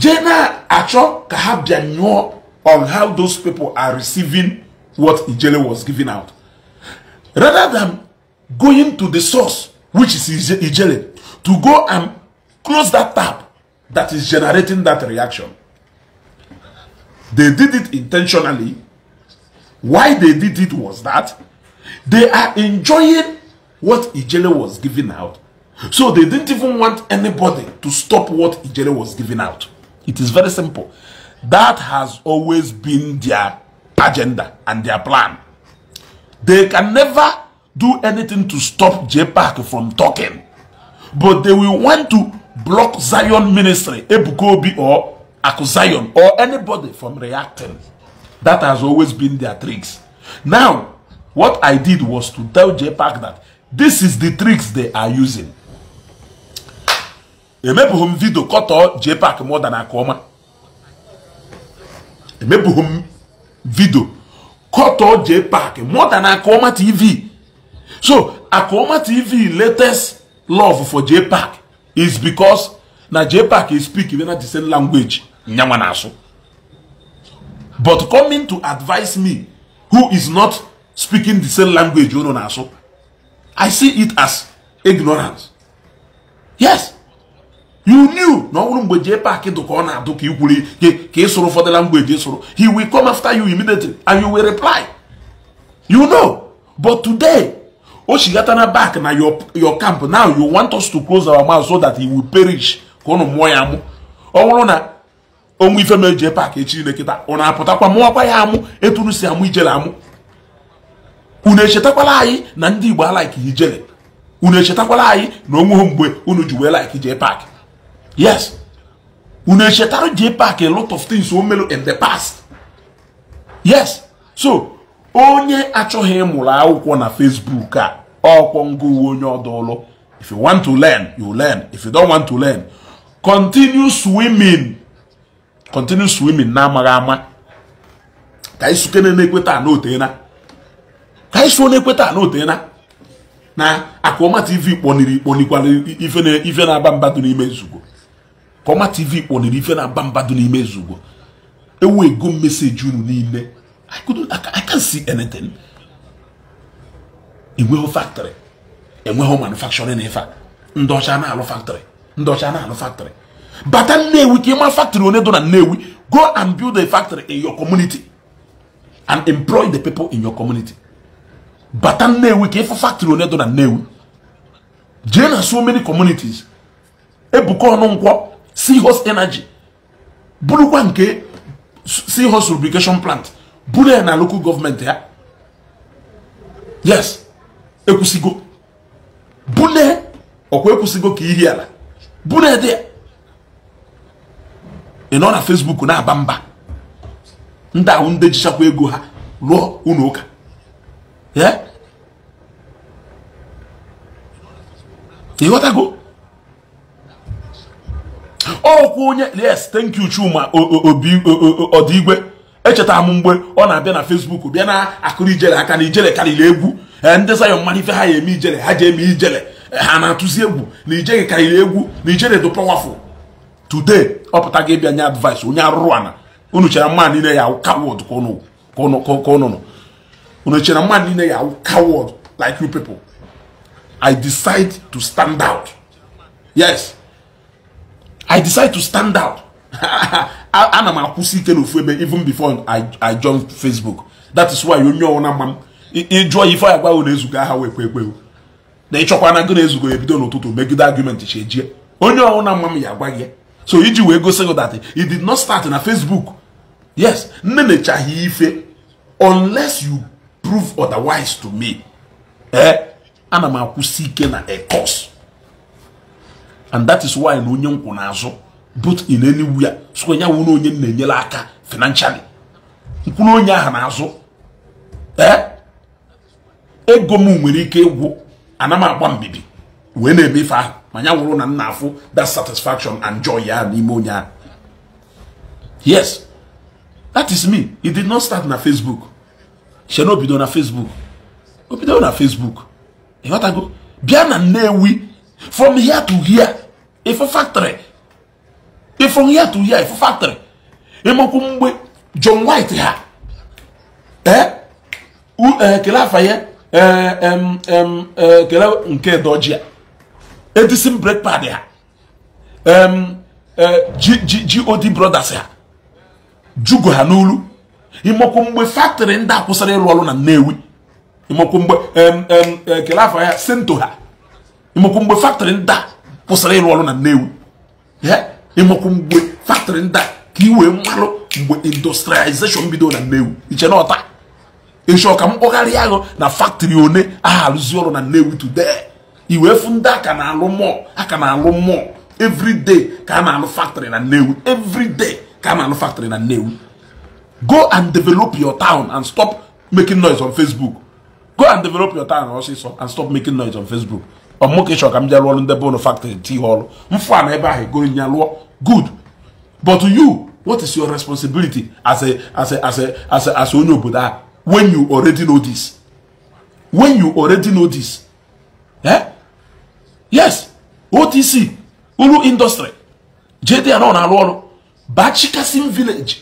jee na-achọ ka ha bịa on how those people are receiving what ijele was giving out rather than going to the source which is ijele to go and close that tap that is generating that reaction they did it intentionally Why they did it was that they are enjoying what Ijele was giving out. So they didn't even want anybody to stop what Ijele was giving out. It is very simple. That has always been their agenda and their plan. They can never do anything to stop JPAC from talking. But they will want to block Zion Ministry, Ebukobi or Akuzion or anybody from reacting. That has always been their tricks. Now, what I did was to tell JPAC that this is the tricks they are using. emebughị m cut kọtọ JPAC more than aka ọma emebughị m vidio kọtọ JPAC more than aka ọma TV so aka ọma TV latest love for JPAC is because na JPAC is speak na the same language nyanwa na-asụ but coming to advise me who is not speaking the same language you know na so i see it as ignorance yes you knew na ọ mgbe jee paakị dụ ọ na-adụ ka ikwuri ka ị sụrụ ụfọdụ language ị sụrụ he will come after you immediately and you will reply you know but today o shigata na back na your your camp now you want us to close our mouth so that he will perish ka ụnụ mụọ ya mụ ọ bụrụ na onwe ife ma eji paakị echi lekịta ọ na-apụtakwa mụwakwa ya amụ etunu si amụ ijele amụ unu echetakwala anyị na ndị igbo alaiki ijele unu echetakwala anyị na onweghị mgbe unu ji wee laiki jee paakị yes unu echetara jee paakị a lot of things o melu in the past yes so onye achọghị mụrụ akwụkwọ na facebook a ọkwọ ngụ uwe onye ọdụlụ if you want to learn you learn if you don't want to learn continue swimming continue swimming na-amaghị ama ka isuke na-ekweta n'otena ka isu na-ekweta n'otena na akụọma tv kpọniri kpọnikwara ife na-aba mbadụ n'ime nzugbo kọma tv kpọniri ife na-aba mbadụ n'ime nzugbo ewu ego meseji unu niile I can't see anything enweghị factory enweghị manufacturing ife ndị ọcha na-alụ factory ndị ọcha na-alụ factory bata nnewi ka ịma factory onye dọ na nnewi go and build a factory in your community and employ the people in your community bata nnewi ka ịfụ factory onye dọ na nnewi jee na so many communities ebuka ọnụ nkwọ seahorse energy bụrụkwa nke seahorse lubrication plant bụrụ ya na local gọọmenti ya yes ekwusigo bune ọkwa ekwusigo ka ihi ala bune dị ya ị nọ na fesbuk na-aba mba ndị ahụ ndị jichakwa ego ha lụọ unu ụka ịghọtago ọkwa onye yes thank you Chuma obi ọdịigwe echeta m mgbe ọ na-abịa na Facebook bịa na akụrụ ijele aka na ijele karịrị egwu ndị Zion mmanụ ife ha ya eme ijele ha ji eme ijele ha na-atụzi egwu na ijele karịrị egwu na ijele dụ powerful today ọpụta gị ịbịa nye advice onye arụrụ ana unu chere mma niile ya coward ka unu nọ unu chere mma niile ya coward like you people i decide to stand out yes i decide to stand out ana m akwụsị ike n'ofu ebe even before i join facebook that is why onye ọwụna mma m ịjụọ ife ya gwaghị na-ezugo aha wee kwe ekwewo na ịchọkwa na gị na-ezugo ya ebido n'ụtụtụ megide argument chi ejie onye ọwụna mma m ya agwa gị so iji wee gosi gị that it did not start na Facebook yes nne echaghị ife unless you prove otherwise to me ee eh, ana m akwụsị ike na a course and that is why na onye nkwụ na-azụ both in anywhere so ya wụ onye onye na-enyere aka financially nkwụrụ onye ahụ azụ ee eh, ego m nwere ike ịgwụ ana m agba mbibi wee na-eme ife ahụ ma ya wụrụ na m na-afụ that satisfaction and joy ya n'ime onye ahụ yes that is me it did not start na facebook shena obido na facebook obido na facebook ịghọtago bịa na nnewi from here to here ifo factory from here to here ife factory ịmakwu mgbe john white ha ee eh? eh, kele afa ya eh, kele nke dojia edison m break pad ha god brothers ha jugo ha n'olu ịmakwu mgbe fatrị ndị kwụsịrị ịrụ ọrụ na Nnewi ịmakwu mgbe eh, kele afọ ya sento ha ịmakwu mgbe fatrị ndị kwụsịrị ịrụ ọrụ na Nnewi ịmakwu mgbe fatrị ndị ka i wee mmalụ mgbe industrialization bido na Nnewi iche na ọta ịchọ ka m kpọgharịa ahụ na fatrị one aha arụzi ọrụ na Nnewi today iwe fụ ndị aka na-alụ mọl aka na-alụ mọl everyday ka a na-alụ factory na Nnewi everyday ka a na-alụ factory na Nnewi go and develop your town and stop making noise on Facebook go and develop your town ọsịsọ and stop making noise on Facebook ọmụkeshọ ka m jee lụọrụ ndị be ụnụ factory ti ọrụ mfụ a na ebe ahụ egoro nya lụọ good but you what is your responsibility as a as a as a as a as onye obodo a when you already know this when you already know this eh? yes otc uru indọstrị jdn na-arụ ọrụ baa chikasim village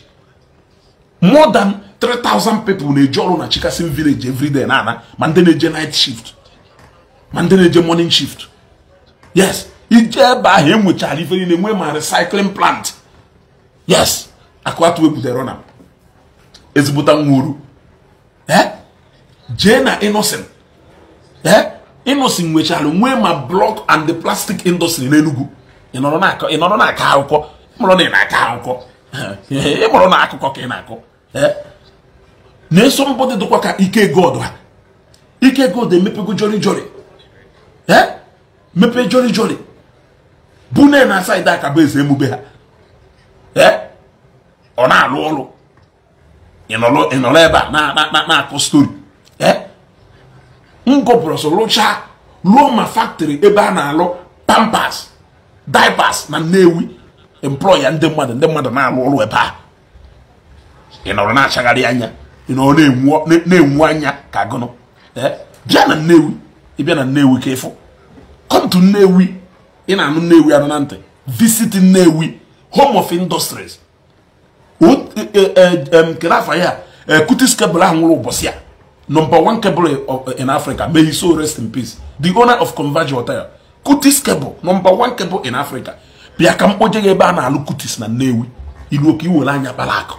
more than 3000 people na-eji ọrụ na chikasin village everyday na ana ma ndị na-eje night shift ma ndị na-eje morning shift yes ije ebe ahụ enwechara ife niile nwee ma recycling plant yes akụatụ ebutere na ezigbota nwa eh? jee na innocent eh? Innocent nwechara nwee ma block and the plastic industry n'Enugu ị nọrọ na-akọ akụkọ ịmụrụ na ị na-akọ akụkọ ịmụrụ na akụkọ ka ị na-akọ eh? na-eso mbọdị dịkwa ka ike god ha ike god emepego jori jori eh? mepe jori jori bune na aka bụ eze emube ha eh? ọ na-alụ ọrụ ịnọrọ ebe a na-akọ stori ee m gọpụrụ ọsọ lụọ ma factory ebe a na-alụ pampas daipas na nnewi employa ndị mmadụ ndị mmadụ na-alụ ọrụ ebe a ị nọrọ na-achagharị anya ị nọrọ na-enwu anya ka gụnụ bịa na nnewi ịbịa na nnewi ka ịfụ kọntu nnewi ị na-anụ nnewi anụ na ntị visit nnewi home of industries e, e, e, kedụ afa ya kutis kebụl ahụ nwụrụ ụbọchị a number one cable of, in Africa. May his soul rest in peace. The owner of Converge Hotel. Kutis cable, number one cable in Africa. bia ka mkpoje ya ebe a na-alụ Kutis na Nnewi. Ilu oke iwere anya kpara akụ.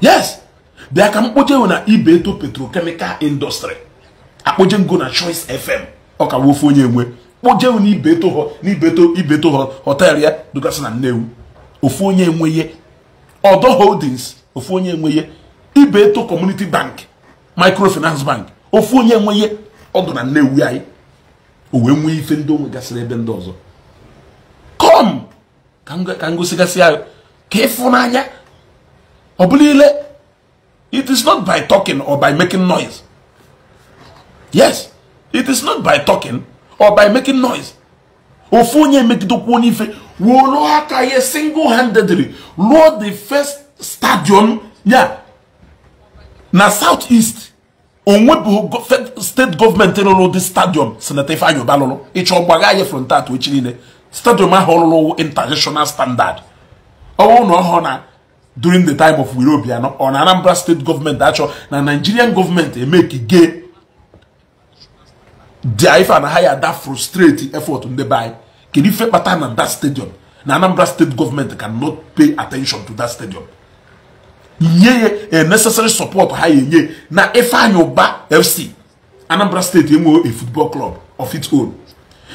Yes. bia ka mkpoje na Ibeto Petrochemical Industry. Akpoje ngo na Choice FM. Ọ ka wofu onye enwe. Kpoje na Ibeto Ibeto Ibeto Hotel ya dugasị na Nnewi. Ofu onye enweye. Odo Holdings. Ofu onye enweye. Ibeto Community Bank. microfinance bank ofu onye nwe ọdụ na nnewi anyị o wee nwee ife ndị onwe gasịrị ebe ndị ọzọ kom ka m gosigasị ya ka ịfụnanya ọ bụla ile it is not by talking or by making noise yes it is not by talking or by making noise ofu onye emegidekwu onye ife wụrụ aka ya single handedly ruo the first stadium ya na south east onwebụ steeti gọọmenti rụrụ dị stadiọm senata Ifeanyi Uba lụrụ ịchọ gbagha anyị frontat echi niile stadiọm ahụ ọlụrụ international standard ọnwụ na ọhụrụ na during the time of Wiro Obiano ọ na Anambra steeti gọọmenti achọ na Nigerian gọọmenti emekige dia ife na ha ya da frustrate effort ndị be anyị kedu ife kpata na that stadium na Anambra steeti gọọmenti cannot pay attention to that stadium nye a eh, necessary support ha enye na Ifeanyi FC Anambra State enwe a football club of its own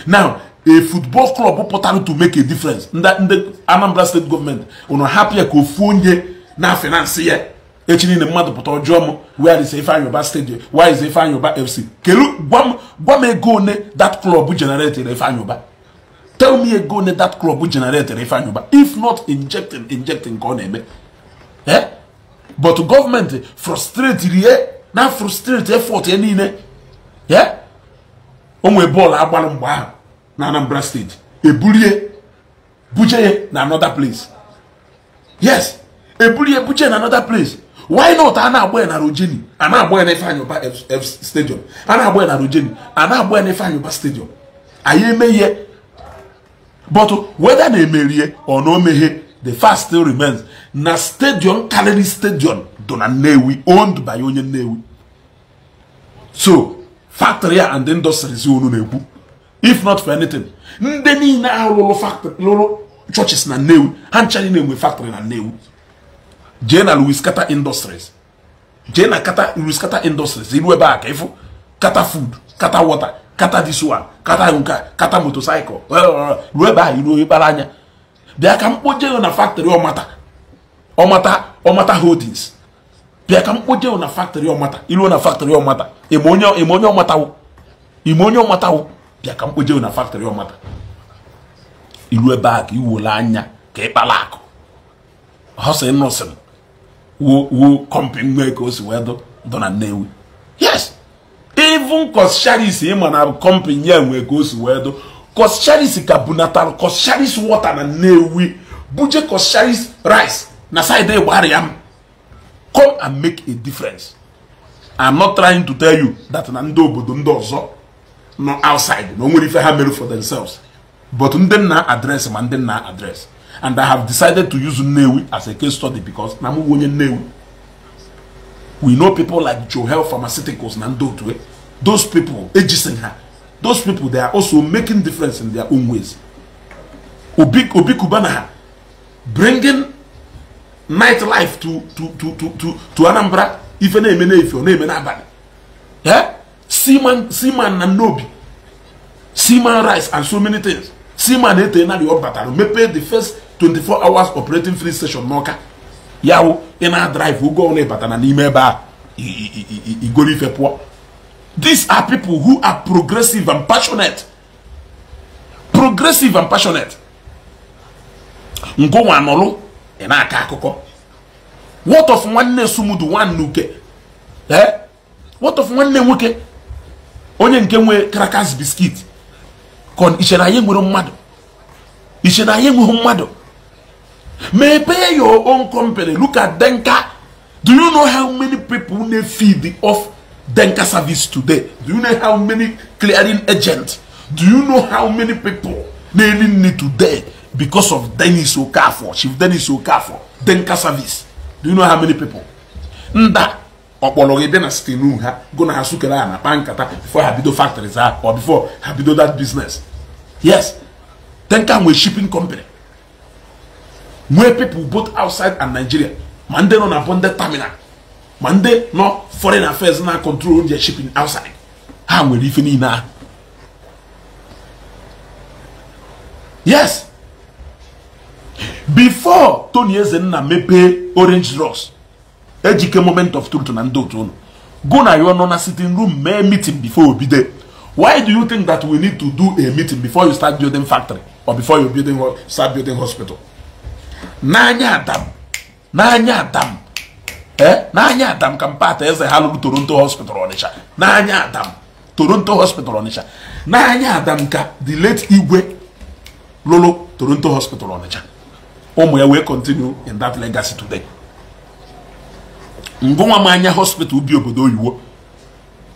now a football club pụtara to make a difference ndị Anambra State gọọmenti ụnụ hapụ ya eh, ka ofu onye na finansi ya eh. echi niile mmadụ pụta ọjọọ m where is Ifeanyi Uba stadium where is Ifeanyi FC kelu gwa m ego one that club generated Ifeanyi tell me ego one that club generated Ifeanyi if not injecting injecting ka ọ na-eme but government eh, frustrate rie eh, na frustrate effort ya eh, niile ya o nwee bọọlụ agbalụ mgbe ahụ na anambra steeti ebulie buje ya na another place yes ebulie buje na another place why not a na-agba ya na rojeni a na-agba ya na ifeanyị stadium a na-agba ya na rojeni a na-agba ya na ifeanyị stadium anyị eme ihe but whether na emerie ọ na omeghe the fast still remains na stadium karịrị stadium dị na Nnewi owned by onye Nnewi so factory a and industries unu na-ekwu if not for anything ndị niile ahụ lụrụ factory lụrụ churches na Nnewi ha nchara na-enwe factory na Nnewi jee na Louis Kata Industries jee na kata Louis Kata Industries iru ebe a ka ịfụ kata food kata water kata this one kata nke kata motorcycle ruo ebe a iru ebe anya bịa ka mkpoje na factory mata. ọmata ọmata holdings bịa ka m na factory ọmata ilu na factory ọmata ime onye ọmatawo ime onye ọmatawo bịa ka m na factory ọmata ilu ebe a ka iwole anya ka ịkpala akụ hustle nọsịn wo wo kọmpin nwee ka o si wee dọ na Nnewi yes even kos charis ịma na kọmpin ya nwee ka o si wee dọ kos charis ka bunatalụ kos charis wọta na Nnewi buje kos charis rice na side ịgbara ya m come and make a difference i'm not trying to tell you that na ndị obodo ndị ọzọ nọ outside na onwere ife ha mere for themselves but ndị nna adres ma ndị nna adres and i have decided to use Nnewi as a case study because na mụ onye Nnewi we know people like Johel Pharmaceuticals na ndị otu those people ejisin ha those people they are also making difference in their own ways obi obi kubana ha bringing night life to to to to to to Anambra ife na-eme n'efe ọ na-eme n'abalị ee seaman seaman na nnobi seaman rice and so many things seaman ete na ọ batara mepee the first 24 hours operating free station n'ọka ya ina ị na-adrive ụgwọ na n'ime ebe a igoro ife pụọ these are people who are progressive and passionate progressive and passionate ngụnwa anọlụ ị na-akọ akụkọ what of nwanne sumudu nwanne uke ee eh? what of nwanne nwoke onye nke nwe crackers biskit kon iche na anyị nwere mmadụ iche na anyị nweghị mmadụ mepee your own company look at denka do you know how many people na feed off denka service today do you know how many clearing agents do you know how many people na-eri nri today because of Dennis Okafor, Chief Dennis Okafor, Denka service. Do you know how many people? Nda ọkpọrọ ebe na site n'uha go ha sukere ha na kpaa nkata before ha bido factories ha or before ha bido that business yes Denka nwee shipping company nwee people both outside and Nigeria ma ndị nọ na bonded terminal ma ndị nọ foreign affairs na control their shipping outside ha nwere ife niile ahụ yes before tony ezenna mepee orange Ross, ejike moment of truth na ndị otu unu go na your nọ na sitting room mee meeting before obido why do you think that we need to do a meeting before you start building factory or before you building start building hospital n'anya adam n'anya adam eh? n'anya adam ka mpata eze ha lụrụ toronto hospital ọnịcha n'anya adam toronto hospital ọnịcha n'anya adam ka the late igwe lụrụ toronto hospital ọnịcha ụmụ ya wee continue in that legacy today mgbe nwa m anya hospital bi obodo oyiwo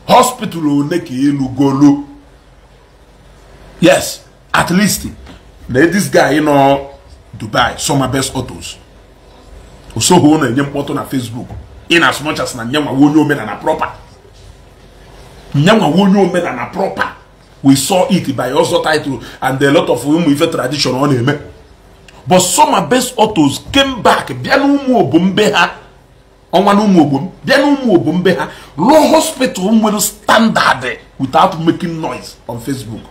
hospital one ka elu golu yes at least na this guy nọ dubai summer best autos osoghị ọ na-enye mkpọtụ na facebook in as much as na nyanwawa onye omenala proper nyanwawa onye omenala proper we saw it by ọzọ title and a lot of ụmụ ife tradition ọ na-eme but some abes autos came back bịa n'ụmụ be ha ọnwa n'ụmụ obom bịa n'ụmụ be ha law hospital nwere standard without making noise on Facebook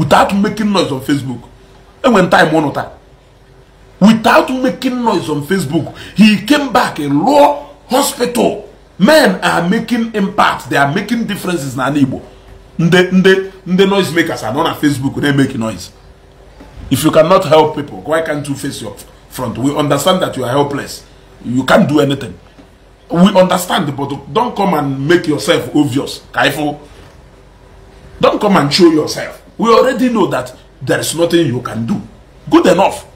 without making noise on Facebook enwere time ụnụ taa without making noise on Facebook he came back law hospital men are making impact they are making differences na ala Igbo ndị ndị ndị noise makers anọ na Facebook na-emeki noise If you cannot help people, why can't you face your front? We understand that you are helpless. You can't do anything. We understand, but don't come and make yourself obvious. Kaifo. Don't come and show yourself. We already know that there is nothing you can do. Good enough.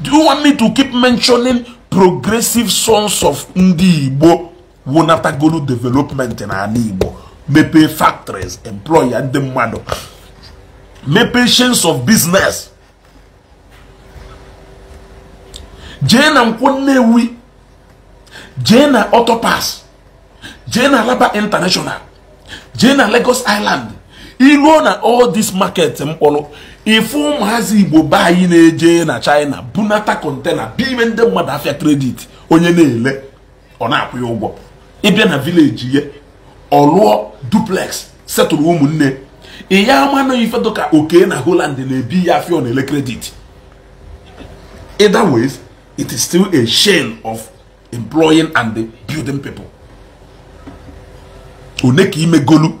Do you want me to keep mentioning progressive sons of Ndi Igbo go to development n'ala Igbo maybe factories employ ndị mmadụ mepee chains of business jee na nkwụ nnewi jee na ọtọpas jee na alaba international jee na lagos island iruo na all this market mkpọrọ ifu ụmụazị igbo be anyị na-eje na china bunata kontena biime ndị mmadụ afịa kredit onye na-ele ọ na-akwụ ya ụgwọ ịbịa na vileji ya ọ lụọ duplex setụrụ ụmụnne ị ya ama ife oke na holand na-ebi ya afịa ọ na-ele kredit either it is still a shame of employing and building people one ka imegolu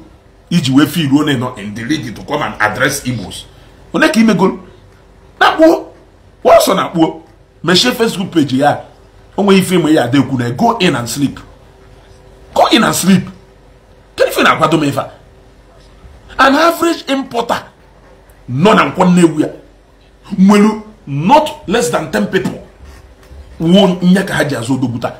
iji wee feel one nọ in the league to come and address Igbos one ka imegolu na-akpuo wọsọ na-akpuo mechie Facebook page ya onwe ife ime ya ada ekwu go in and sleep go in and sleep kedu ife na-akwado m ife an average importer nọ na nkwọ nnewu ya nwere not less than 10 people wuo nye ka ha ji azụ odogwuta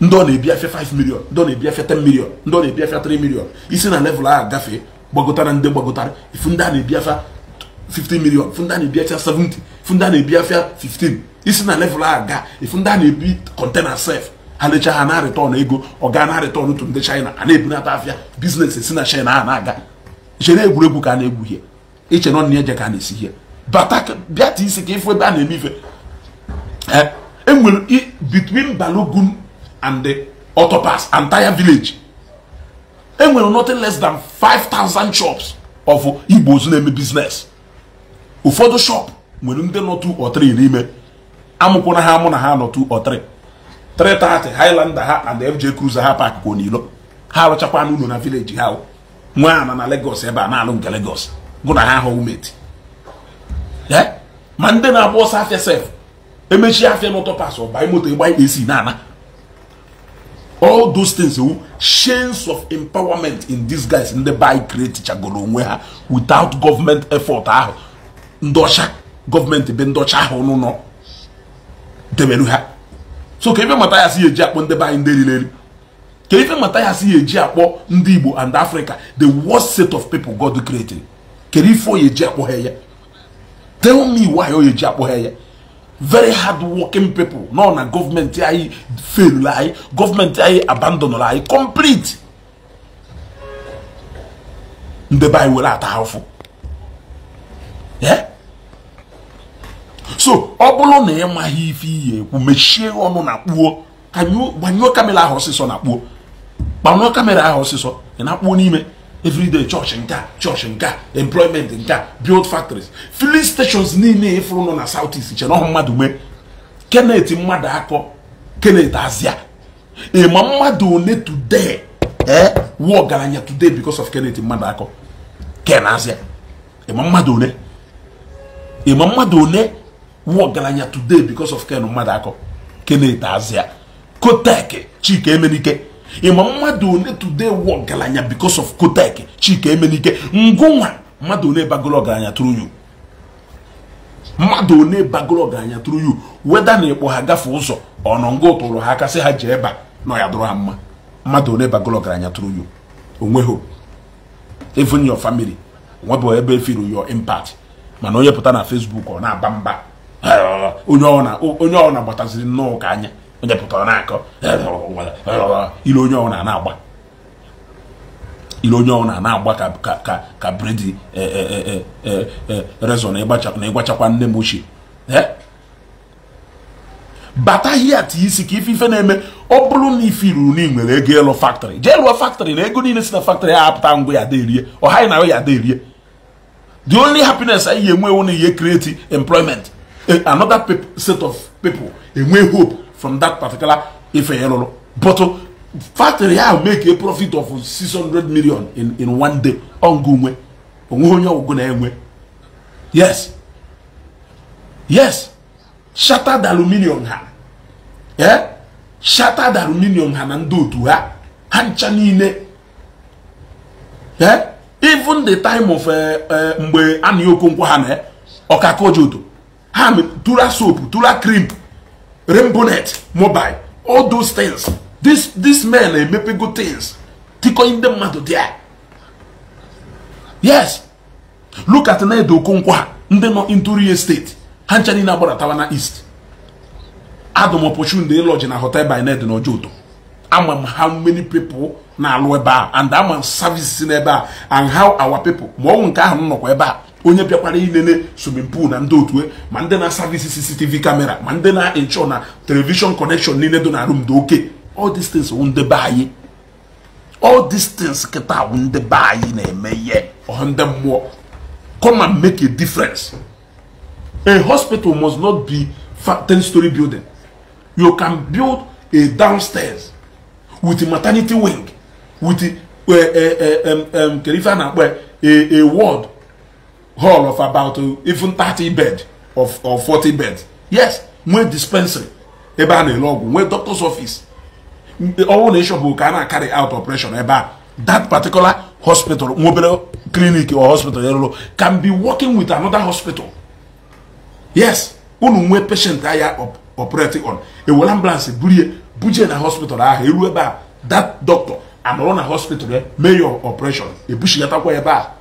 ndị ọ na-ebi afịa 5 million ndị ọ na-ebi afịa 10 million ndị ọ na-ebi afịa 3 million isi na level ahụ gafee gbagotara ndị gbagotara ifu ndị a na-ebi afịa 15 million ifu ndị a na-ebi afịa 70 ifu ndị a na-ebi afịa 15 isi na level ahụ gaa ifu ndị a na-ebi kọntena sef ha lecha ha na return ego ọ gaa na return otu ndị china a na-ebunata afịa biznes esi na china a na-aga chere egwuregwu ka a na-egwu ihe iche nọ na ihe je ka a na-esi ihe bata bịa taa isi ka ịfụ ebe a na-eme ife enwere eh, e between Balogun and the Autopass entire village enwere nothing less than 5,000 shops of Igbos na-eme business ụfọdụ shop nwere ndị nọ 2 or 3 n'ime na ha amụ na ha nọ 2 or 3 330 Highlander ha and FJ Cruiser ha pak n'ilo ha arụchakwa n'ụlọ na village ha nwa ana na Lagos ebe a na-alụ nke Lagos gụ na ha ahụ umeti eh, ma ndị na-agba ọsọ afịa sef emechi afia n'ụtọ pasụ bai moto ịgba ikpe isi na-ana all those things wu oh, chains of empowerment in these guys ndị by create chagoro onwe ha without government effort ahụ ndọcha government be ndọcha ahụ n'ụlọ debere ha so ka ife mata ya si eji akpọ ndị be ndị rileli ka ife mata ya si eji akpọ ndị Igbo and Africa the worst set of people God created kere ife oyeji akpọ ha ya tell me why oyeji akpọ ha ya very hard working people nọ na gọọmenti anyị fail anyị gọọmenti anyị abandon anyị complete ndebe anyị were ata ha so ọ bụrụ na ị maghị ife iyi ekwu mechie ọnụ na kpuo gbanyụọ kamera ahụ ọsịsọ na kpuo gbanyụọ kamera ahụ ọsịsọ ị na-akpuo n'ime everyday church nke a church employment nke a build factories filling stations niile ịfụrụ nọ na south east che ọhụ mmadụ mee kenet mmadụ akọ kenet azịa ịma mmadụ one today ee eh, wuo ọgaranya today because of kenet mmadụ akọ ken azịa ịma mmadụ one ịma mmadụ ọgaranya today because of ken mmadụ akọ kenet azịa kotek chike emenike ịma mmadụ one today wụ ọgaranya bikos of Kotek Chika Emenike ngụnwa mmadụ one bagoro ọgaranya tụrụ you mmadụ one bagoro ọgaranya tụrụ you weda na ịkpọ ha gafe ụzọ ọnọ ngụ tụrụ ha aka sị ha jee ba na nọ ya dụrụ ha mma mmadụ one bagoro ọgaranya through you onweghị even your family nwebụ ebe efiru your impact mana onye pụta na Facebook ọ na-aba mba onye ọ na-agbataziri nnọọ ka anya onye pụtara na-akọ ile onye ọhụrụ na-agba onye ọhụrụ na-agba ka ka ka bredi e, e, e, rezọ na ịgbachakwa nne m ochie bata hie isi ka ife ife na-eme ọ bụrụ na ife iruru na ego ịlụ faktrị jee lụọ faktrị na ego niile si na faktrị ya apụta ngwa ya aderie ọha na ya aderie the only happiness anyị enwewo na ihe create employment another set of people enwe hope from that particular Ifeyelolo. But uh, factory ahụ make a profit of 600 million in, in one day. na Ongunwe. Yes. Yes. Shattered aluminium ha. Eh? Shattered aluminium ha na ndị otu ha. Ha ncha niile. Eh? Even the time of eh, eh, mgbe a na-ekwu ha na ọkaka ojodo. Ha tụra soap, tụra crimp. net mobile all those things this this men emepe good things tikọnye ndị mmadụ dia. yes look at Nnedo Okonkwa ndị nọ Nturu steeti ha ncha niile agbaratawa na east adụm opportunity lodge na hotel by Nnedo na Ojoto ama m how many people na-alụ ebe a and amam m services n'ebe a and how our people ma ọnwụ nke ahụ m nọkwa ebe a onye bịakwara ilele swimming pool na ndị otu e, ma ndị na-asavisi CCTV kamera ma ndị na-enchọ na televishọn kọnekshọn niile dị na rum oke all these things ndebe anyị all kịta wụ na-eme ihe ọha ndị mmụọ come and make a difference a hospital must not be 10 story building you can build a downstairs with maternity wing with a, a, a, a um, um, hall of about uh, even thirty bed of, or forty bed yes nwee dispensary ebe a na-ele ọgwụ nwee doctor's office ọnwụ na ịshọpụ ka a na-akarị out operation ebe a that particular hospital nwa clinic or hospital eruru can be working with another hospital yes unu nwee patient aya operating on ewere ambulance burie buje na hospital ahụ eruo ebe a that doctor anọrọ na hospital ya eh, mee your operation ebushigatakwa ebe a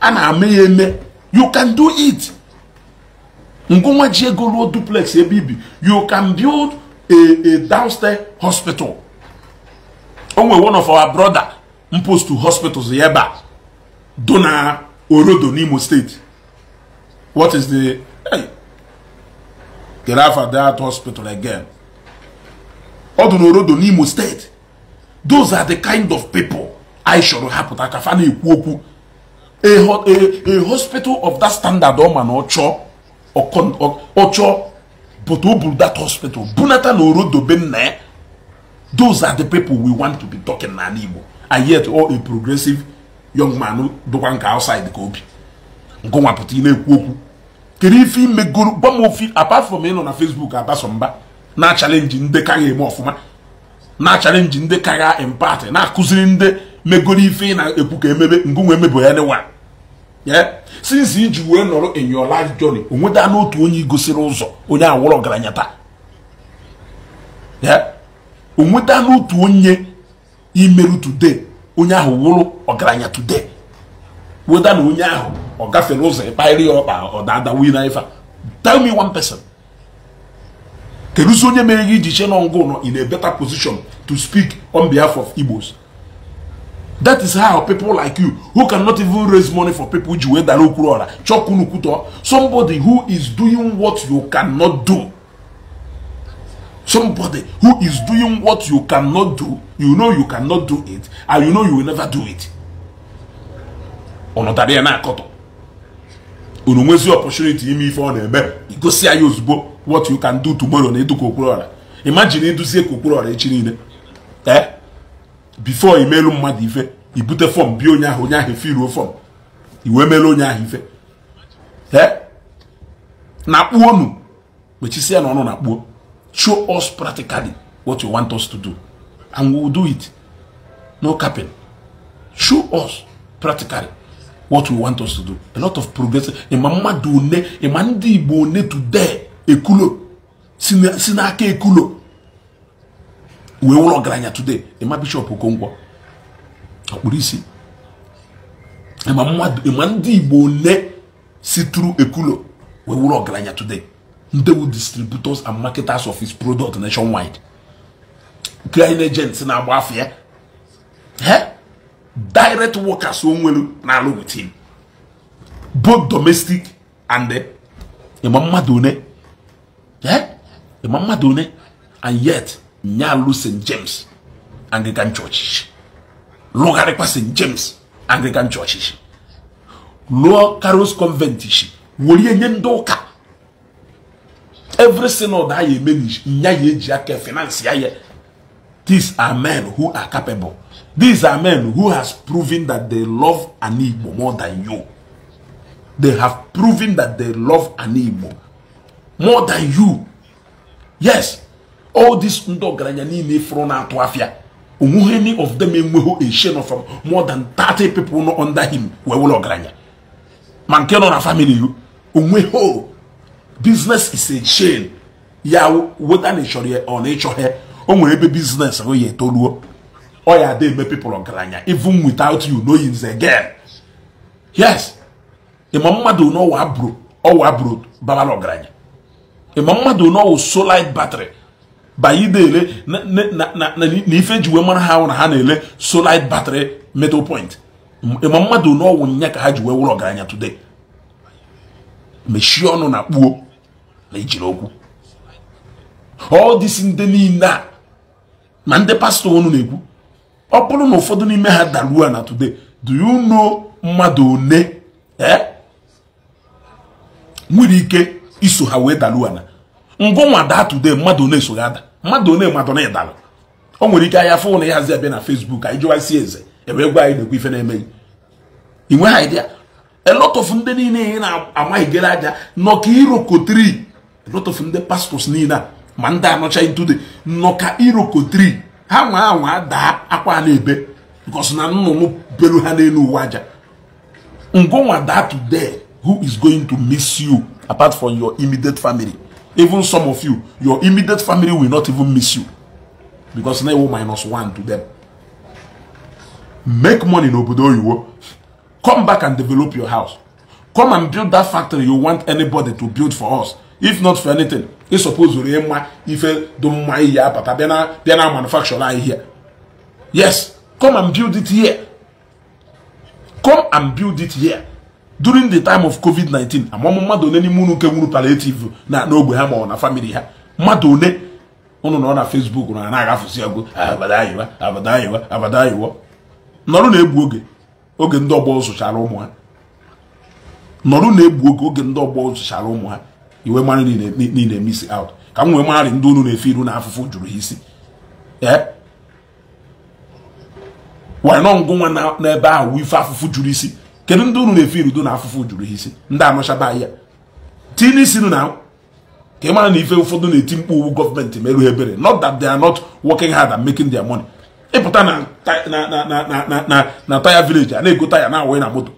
a na eme ya eme you can do it ngụnwa ji ego ruo duplex ebe ibi you can build a a downstairs hospital o nwere one of our brother mpost hospitals ya do na orodo n'imo steeti what is the hey, get out of that hospital again ọ do n'orodo n'imo steeti those are the kind of people I chọrọ hapụta ka fa na-ekwu okwu a, a, a hospital of that standard ọ ma na ọchọ ọchọ but o that hospital bunata na orodobe nna ya those are the people we want to be talking n'ala Igbo and yet all a progressive young man dụkwa nke outside ka obi ngụnwa ị na-ekwu okwu kedu ife imegoro gwa m ofi apart from ịnọ na Facebook abaso mba na-achalenji ndị ka eme ọfụma na-achalenji ndị ka ga empati na-akụziri ndị megoro ife ị na-ekwu ka emebe ngụnwe emebo ya nwa ya since iji wee nọrọ in your life journey onweta n'otu onye gosiri ụzọ onye awụrụ ọgaranya taa ya nweta n'otu onye imerụ today onye ahụ wụrụ ọgaranya today weta na onye ahụ ọ gafere ụzọ ịkparị ya ọkpa ọ dada wee na ife tell me one person keduzi onye mere gị iji che nọ ngụ nọ in a better position to speak on behalf of Igbos That is how people like you, who cannot even raise money for people, somebody who is doing what you cannot do. Somebody who is doing what you cannot do, you know you cannot do it, and you know you will never do it. Ọnọdụ na akọtọ. Unu nwezi opportunity ime ife ọ na-eme, igosi anyị ozugbo what you can do tomorrow na eduka okporo ọra. Imagine eduzie ka okporo ọra echi niile. Eh? before imelu mmadụ ife ibute fọm bi onye ahụ onye ahụ efiruo fọm iwe mere onye ahụ ife na kpuo nu kpechisia na ọnụ na kpuo show us practically what you want us to do and we will do it no capping show us practically what we want us to do a lot of progress ịma mmadụ one ịma ndị Igbo one today ekulo si n'aka ekulo wee wụrụ ọgaranya today ịma bishọp Okonkwo ọkpụrụ isi ịma mmadụ ịma ndị Igbo ole si tụrụ ekulo wee wụrụ ọgaranya today ndị distributors and marketers of his product nationwide crying agents na-agba afọ ya direct workers onwelu na-alụ with him both domestic and ịma eh, mmadụ one ịma mmadụ one and yet Nyalu St. James Anglican Church. Logarekwa St. James Anglican Church. Lower Caros Convent. Wòlíẹ̀ nye ndọ́ọ̀ka. Every synod a yẹ manage. nya yẹ eji finance ya yẹ. These are men who are capable. These are men who has proven that they love an Igbo more than you. They have proven that they love an Igbo more than you. Yes. all these ndị ọgaranya niile fụrụ na-atụ afịa onweghị any of them enweghị a share from more than 30 people nọ under him wee wụlọ ọgaranya ma nke nọ na family o business is a chain ya weta na ịchọrọ ya ọ na ịchọghị o nwere ebe biznes ahụ ya etoruo ọ ya ada eme people ọgaranya even without you know is again yes ịma e mmadụ n'ọwa bro ọwa bro babala ọgaranya ịma e mmadụ n'ọwụ solid battery baidele na ife ji wee mara ha hụ na ha na-ele solid battery metal point e ma mmadụ n'ọwụ nya ka ha ji wee wụrụ ọgaranya today mechie ọnụ na kpuo na ijiri okwu ọ this ndị niile a ma ndị pastọ ọnụ na-ekwu ọ bụrụ na ụfọdụ n'ime ha daruo na today do you know mmadụ one eh? nwere ike iso ha wee daruo na mbụ nwa daa today mmadụ one esoghi ada mmadụ one mmadụ na ịdara o nwere ike ahịa fụ na ya hazi abịa na Facebook anyị jụwa si eze ebe gwa anyị na-ekwu ife na-emeghị ị nweghị idea a lot of ndị niile ị na-amaghị gere aja nọ ka irokotri a lot of ndị pastors niile a ma ndị anọcha ntude nọ ka irokotri ha nwa anwa daa akwa na-ebe because na nnụnụ belu ha n'elu uwe aja ngụnwa daa today who is going to miss you apart from your immediate family even some of you your immediate family will not even miss you because now ewu minus one to them make money no n'obodo you. come back and develop your house come and build that factory you want anybody to build for us if not for anything ị suppose rie mma ife dị don't my apata bịa na bịa na manufacture anyị here yes come and build it here come and build it here during the time of covid-19 amamụ mmadụ one n'ime unu nke nwuru palliative na n'ogbe ha ma ọ na family ha mmadụ one na nọ na facebook na na-agafụsi agụ abadayiwa abadayiwa abadayiwa nọrụ na-egbu oge oge ndị ọgbọ zụchara ụmụ ha nọrụ na-egbu oge oge ndị ọgbọ zụchara ụmụ ha iwe mara niile misi out ka m wee mararị ndị unu na-efe iru na afụfụ jụrụ ha isi ee wee nọ ngụ nwa n'ebe ahụ ife afụfụ jụrụ isi kedu ndị unu na-efe irudo na afụfụ juru isi ndị anọchaba ya ti n'isi na ka ị mara na ife ụfọdụ na-eti mkpu owu gọọmenti merụ ebere not that they are not working hard and making their money ịpụta na taya village a na-ego taya na awanye na moto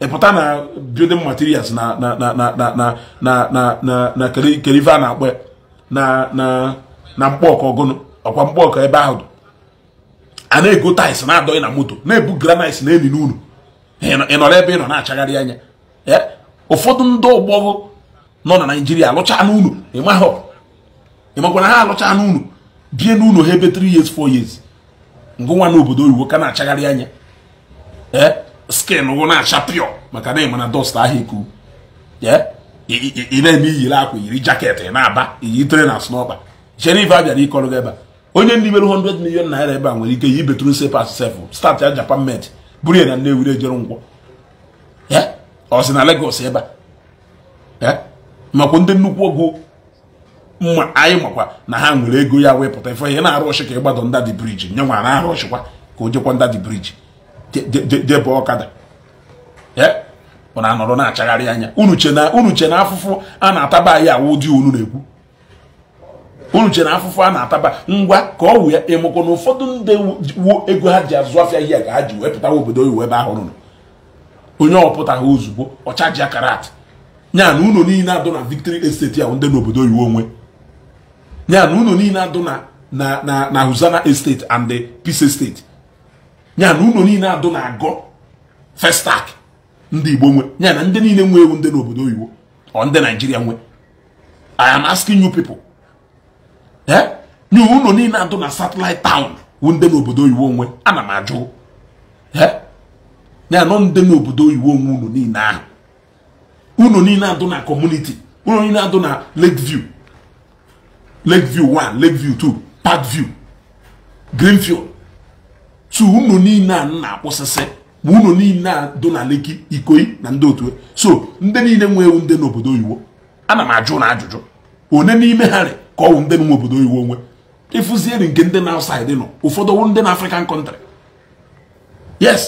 ịpụta na building materials na kerive a na-akpọ na mkpọọka ọgụnụ ọkwa mkpọọka ebe ahụ a na-ego tais na-adọghị na moto na-ebu granit na eni n'ụlọ ị nọrọ ebe ị nọ na-achagharị anya eh, ụfọdụ ndị ọgbọghọ nọ na naijiria alụcha n'ụlọ ị makwara ha alụcha n'ụlọ bie n'ụlọ ha ebe 3 years 4 years ngụnwa na obodo oyibo ka na-achagharị anya ee eh, skin wụ na-acha pịọ maka na ịma na dọsta ahụ eku eh, ị na-eme iyiri akwa iyiri jaket ị na-aba iyi tere na snọba sheriff abịara ịkọrọ gị ebe a onye ndị mere 100 million naira ebe a nwere ike yi betru sepas sef start ya japan med buru ya na Nnewi ejere ngwọ ọ sị na Lagos ebe a makwa ndị nnukwu ogo mma anyị makwa na ha nwere ego ya wee pụta ife ihe na-arụ ọchị ka ịgbado ndadị briji nye nwa na-arụ ọchịkwa ka o jekwa ndadị briji debe ọkada ọ na-anọrọ na-achagharị anya unuche na afụfụ a na-ataba anyị awụ ụdị unu na-ekwu unu chere afụfụ a na-ataba ngwa ka ọ wụ ya emekwa na ụfọdụ ndị wuo ego ha ji azụ afịa ihe ka ha ji wepụtawa obodo oyibo ebe ahụ rụrụ onye ha ozugbo ọchaji akarat nya na ụlọ niile adụ na victory estate ahụ ndị n'obodo oyibo onwe nya na ụlọ niile adụ na huzana estate and the peace estate nya na ụlọ niile adụ na agọ festak ndị igbo nwe nya na ndị niile nwe ewu ndị n'obodo oyibo ọ ndị naijiria nwe i am asking you people Eh? nye unu niile adụ na satellite town wu ndị n'obodo oyibo onwe ana m ajụ ya eh? nọ ndị n'obodo oyibo onwe unu niile ahụ unu niile adụ na kọmuniti unu niile adụ na lake view lake view 1 lake view 2 park niile a na-akpụsịsị ma unu niile a dụ na leki ikoyi na ndị otu e. so ndị niile nwe ewu ndị n'obodo oyibo ana m ajụ na ajụjụ one n'ime ha re ka ọ wụ ndị nọ n'obodo oyibo onwe ịfụzieri nke ndị na outside nọ ụfọdụ wụ ndị na african country yes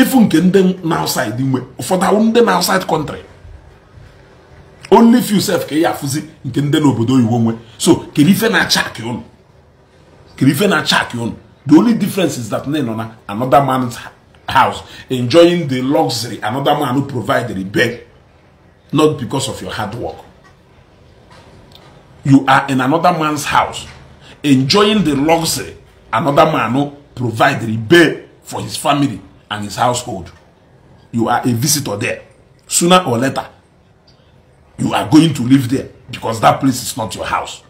ịfụ nke ndị na outside nwe ụfọdụ awụ ndị na outside country only few self ka ị afụzi nke ndị n'obodo oyibo nwe so kiri ife na-acha akị ụnụ kiri ife na-acha akị ụnụ the only difference is that nọ na another man's house enjoying the luxury another man who provided the bed not because of your hard work you are in another man's house enjoying the luxury another man no provide repair for his family and his household you are a visitor there sooner or later you are going to live there because that place is not your house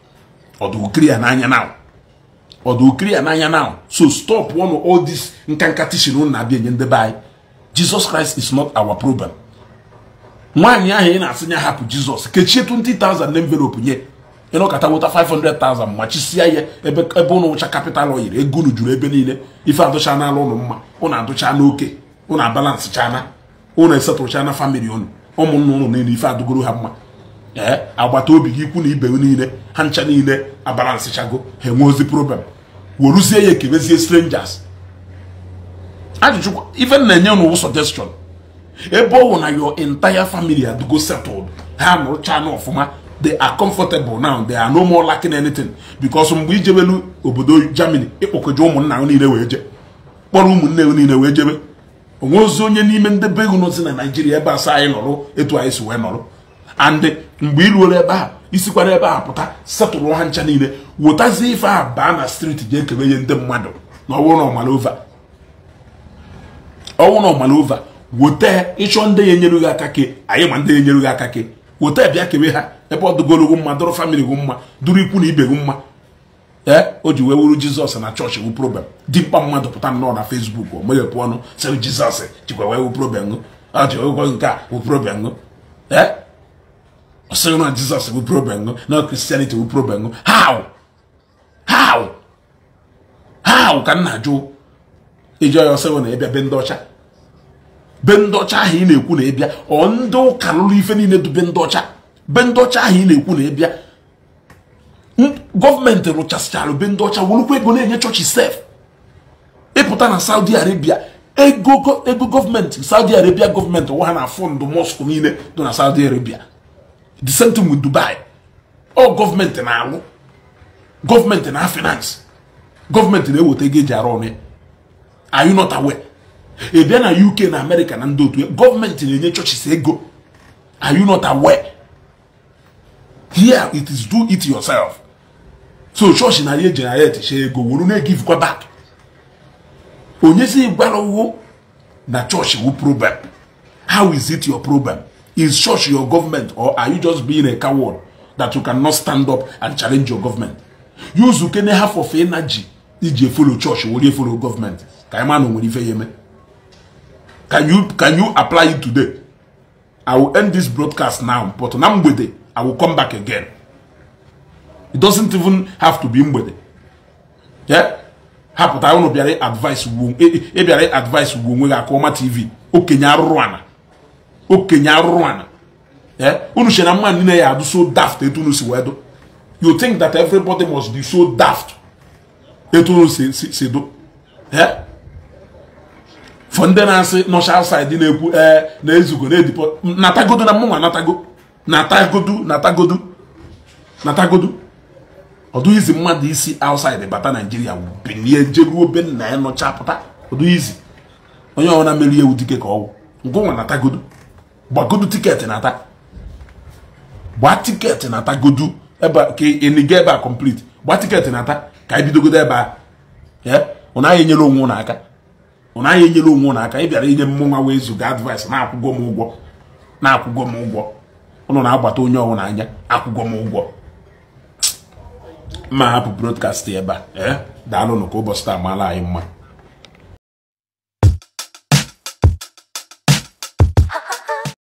ọdụkiri ananya now ọdụkiri ananya now so stop one of all this nkanka tishin na abịa enye ndị anyị jesus christ is not our problem nwaanyị ahụ ị na-asị ya hapụ jizọs kechie 20000 na envelope nye ịnọkọta wụta 500,000 ma chisia ya ebe ụnụ wụcha kapital oyiri ego unu juru ebe niile ife adụcha n'ala ụnụ mma ụnụ adụcha n'oke ụnụ abalansị chana ụnụ esetụcha na famili ụnụ ụmụnna ụnụ niile ife adụgoro ha mma ee agbata obi gị ikwu na ibe niile ha ncha niile abalansị chago ha enwe ozi problem weruzie ya ekebezie strangers ajụjụ ife na-enye ụnụ suggestion ebe ọ wụ na yo intaya family adụgo settled ha nụrụcha na ọfụma they are comfortable now they are no more lacking anything because mgbe ijebelu obodo germany ịkpọkọje ụmụnna niile wee je kpọrọ ụmụnne niile wee jebe onwe ozi onye n'ime ndị be ego nọzi na naijiria ebe asa anyị nọrụ etu anyị si wee nọrụ and mgbe iruola ebe a isikwara ebe a pụta setụrụ ha ncha niile wetazie ife a baa na streeti ji kebe nye ndị mmadụ na na ọmalova ọwụ ịchọ ndị ya enyerughị aka ke anyị ma ndị ya enyere aka ke weta bịa kewe ha ebe ọ dụgologwu mma dụrụ famili gwu mma dụrụ ikwu na ibe gwu mma ee o ji wee wuru jizọs na chọọchị wu problem mkpa mmadụ pụta nnọọ na fesbuk o meghepụ ọnụ sị jizọs jikwa wee wu problem ọjịgwọ nke a wu problem ee ọsịghị na jizọs wu problem na kristianity wu problem how how how ka m na-ajụ iji ọya ọsịghị na ịbịa be ndị ọcha be ndị ọcha ahụ ị na-ekwu na ịbịa ọ ndị ụka lụrụ ife niile dube ndị ọcha be ndị ọcha ahụ ị na-ekwu na ịbịa gọọmenti rụchasịchara be ndị ọcha werukwa ego na-enye chọọchị sef ịpụta na saudi arabia ego ego gọọmenti saudi arabia gọọmenti nwa ha na fọndụ mọskụ niile dị na saudi arabia the same thing with dubai ọ gọọmenti na-alụ gọọmenti na finance gọọmenti na-eweta ego eji arụ ọrụ ya are you not aware ị bịa na uk na amerịka na ndị otu gọọmenti na-enye chọchis ego are you not aware here it is do it yourself so church na ya generate share ego wuru na-egivekwa back onye si gwara ụgwụ na church wụ problem how is it your problem is church your government or are you just being a coward that you cannot stand up and challenge your government use ukene half of energy iji follow church wori follow government ka anyị ma na o nwere ife ya eme Can you can you apply it today? I will end this broadcast now, but on Mgbede, I will come back again. It doesn't even have to be Mgbede. Yeah? Hapụta ụnụ bịara advice ugbo e, e, e ịbịara advice ugbo onwe gị aka ọma TV okenye arụrụ ana okenye arụrụ ana unu che na mmadụ niile ya adụ so daft etu unu si wee dụ you think that everybody must be so daft etu unu si dụ yeah? for ndị na-asị nọcha outside na-ekwu ee eh, na-ezugo na-edipo natagodu na mụnwa natago natagodu natagodu natagodu ọdụ izi mmadụ isi outside bata naijiria bilie jeruo be nna ya e nọcha pụta ọdụ izi onye ọbụla meri ewu dike ka ọwụ ngụnwa natagodu gbagodu tiketi nata gbaa tiketi natagodu ebe ka ịniga ebe a complete gbaa tiketi nata ka anyị bidogodo ebe a ụna anyị enyere onwe ụnụ aka ọ naghị enyere onwe ụnụ aka ị bịara inye m nwa wee zụga advice na akwụgwọm m ụgwọ na akwụgwọ m ụgwọ ụnụ na-agbata onye ọwụ n'anya akwụgwọ m ụgwọ ma hapụ broadcast ebe a eh? daalụnụ ka ụbọchị taa maala anyị mma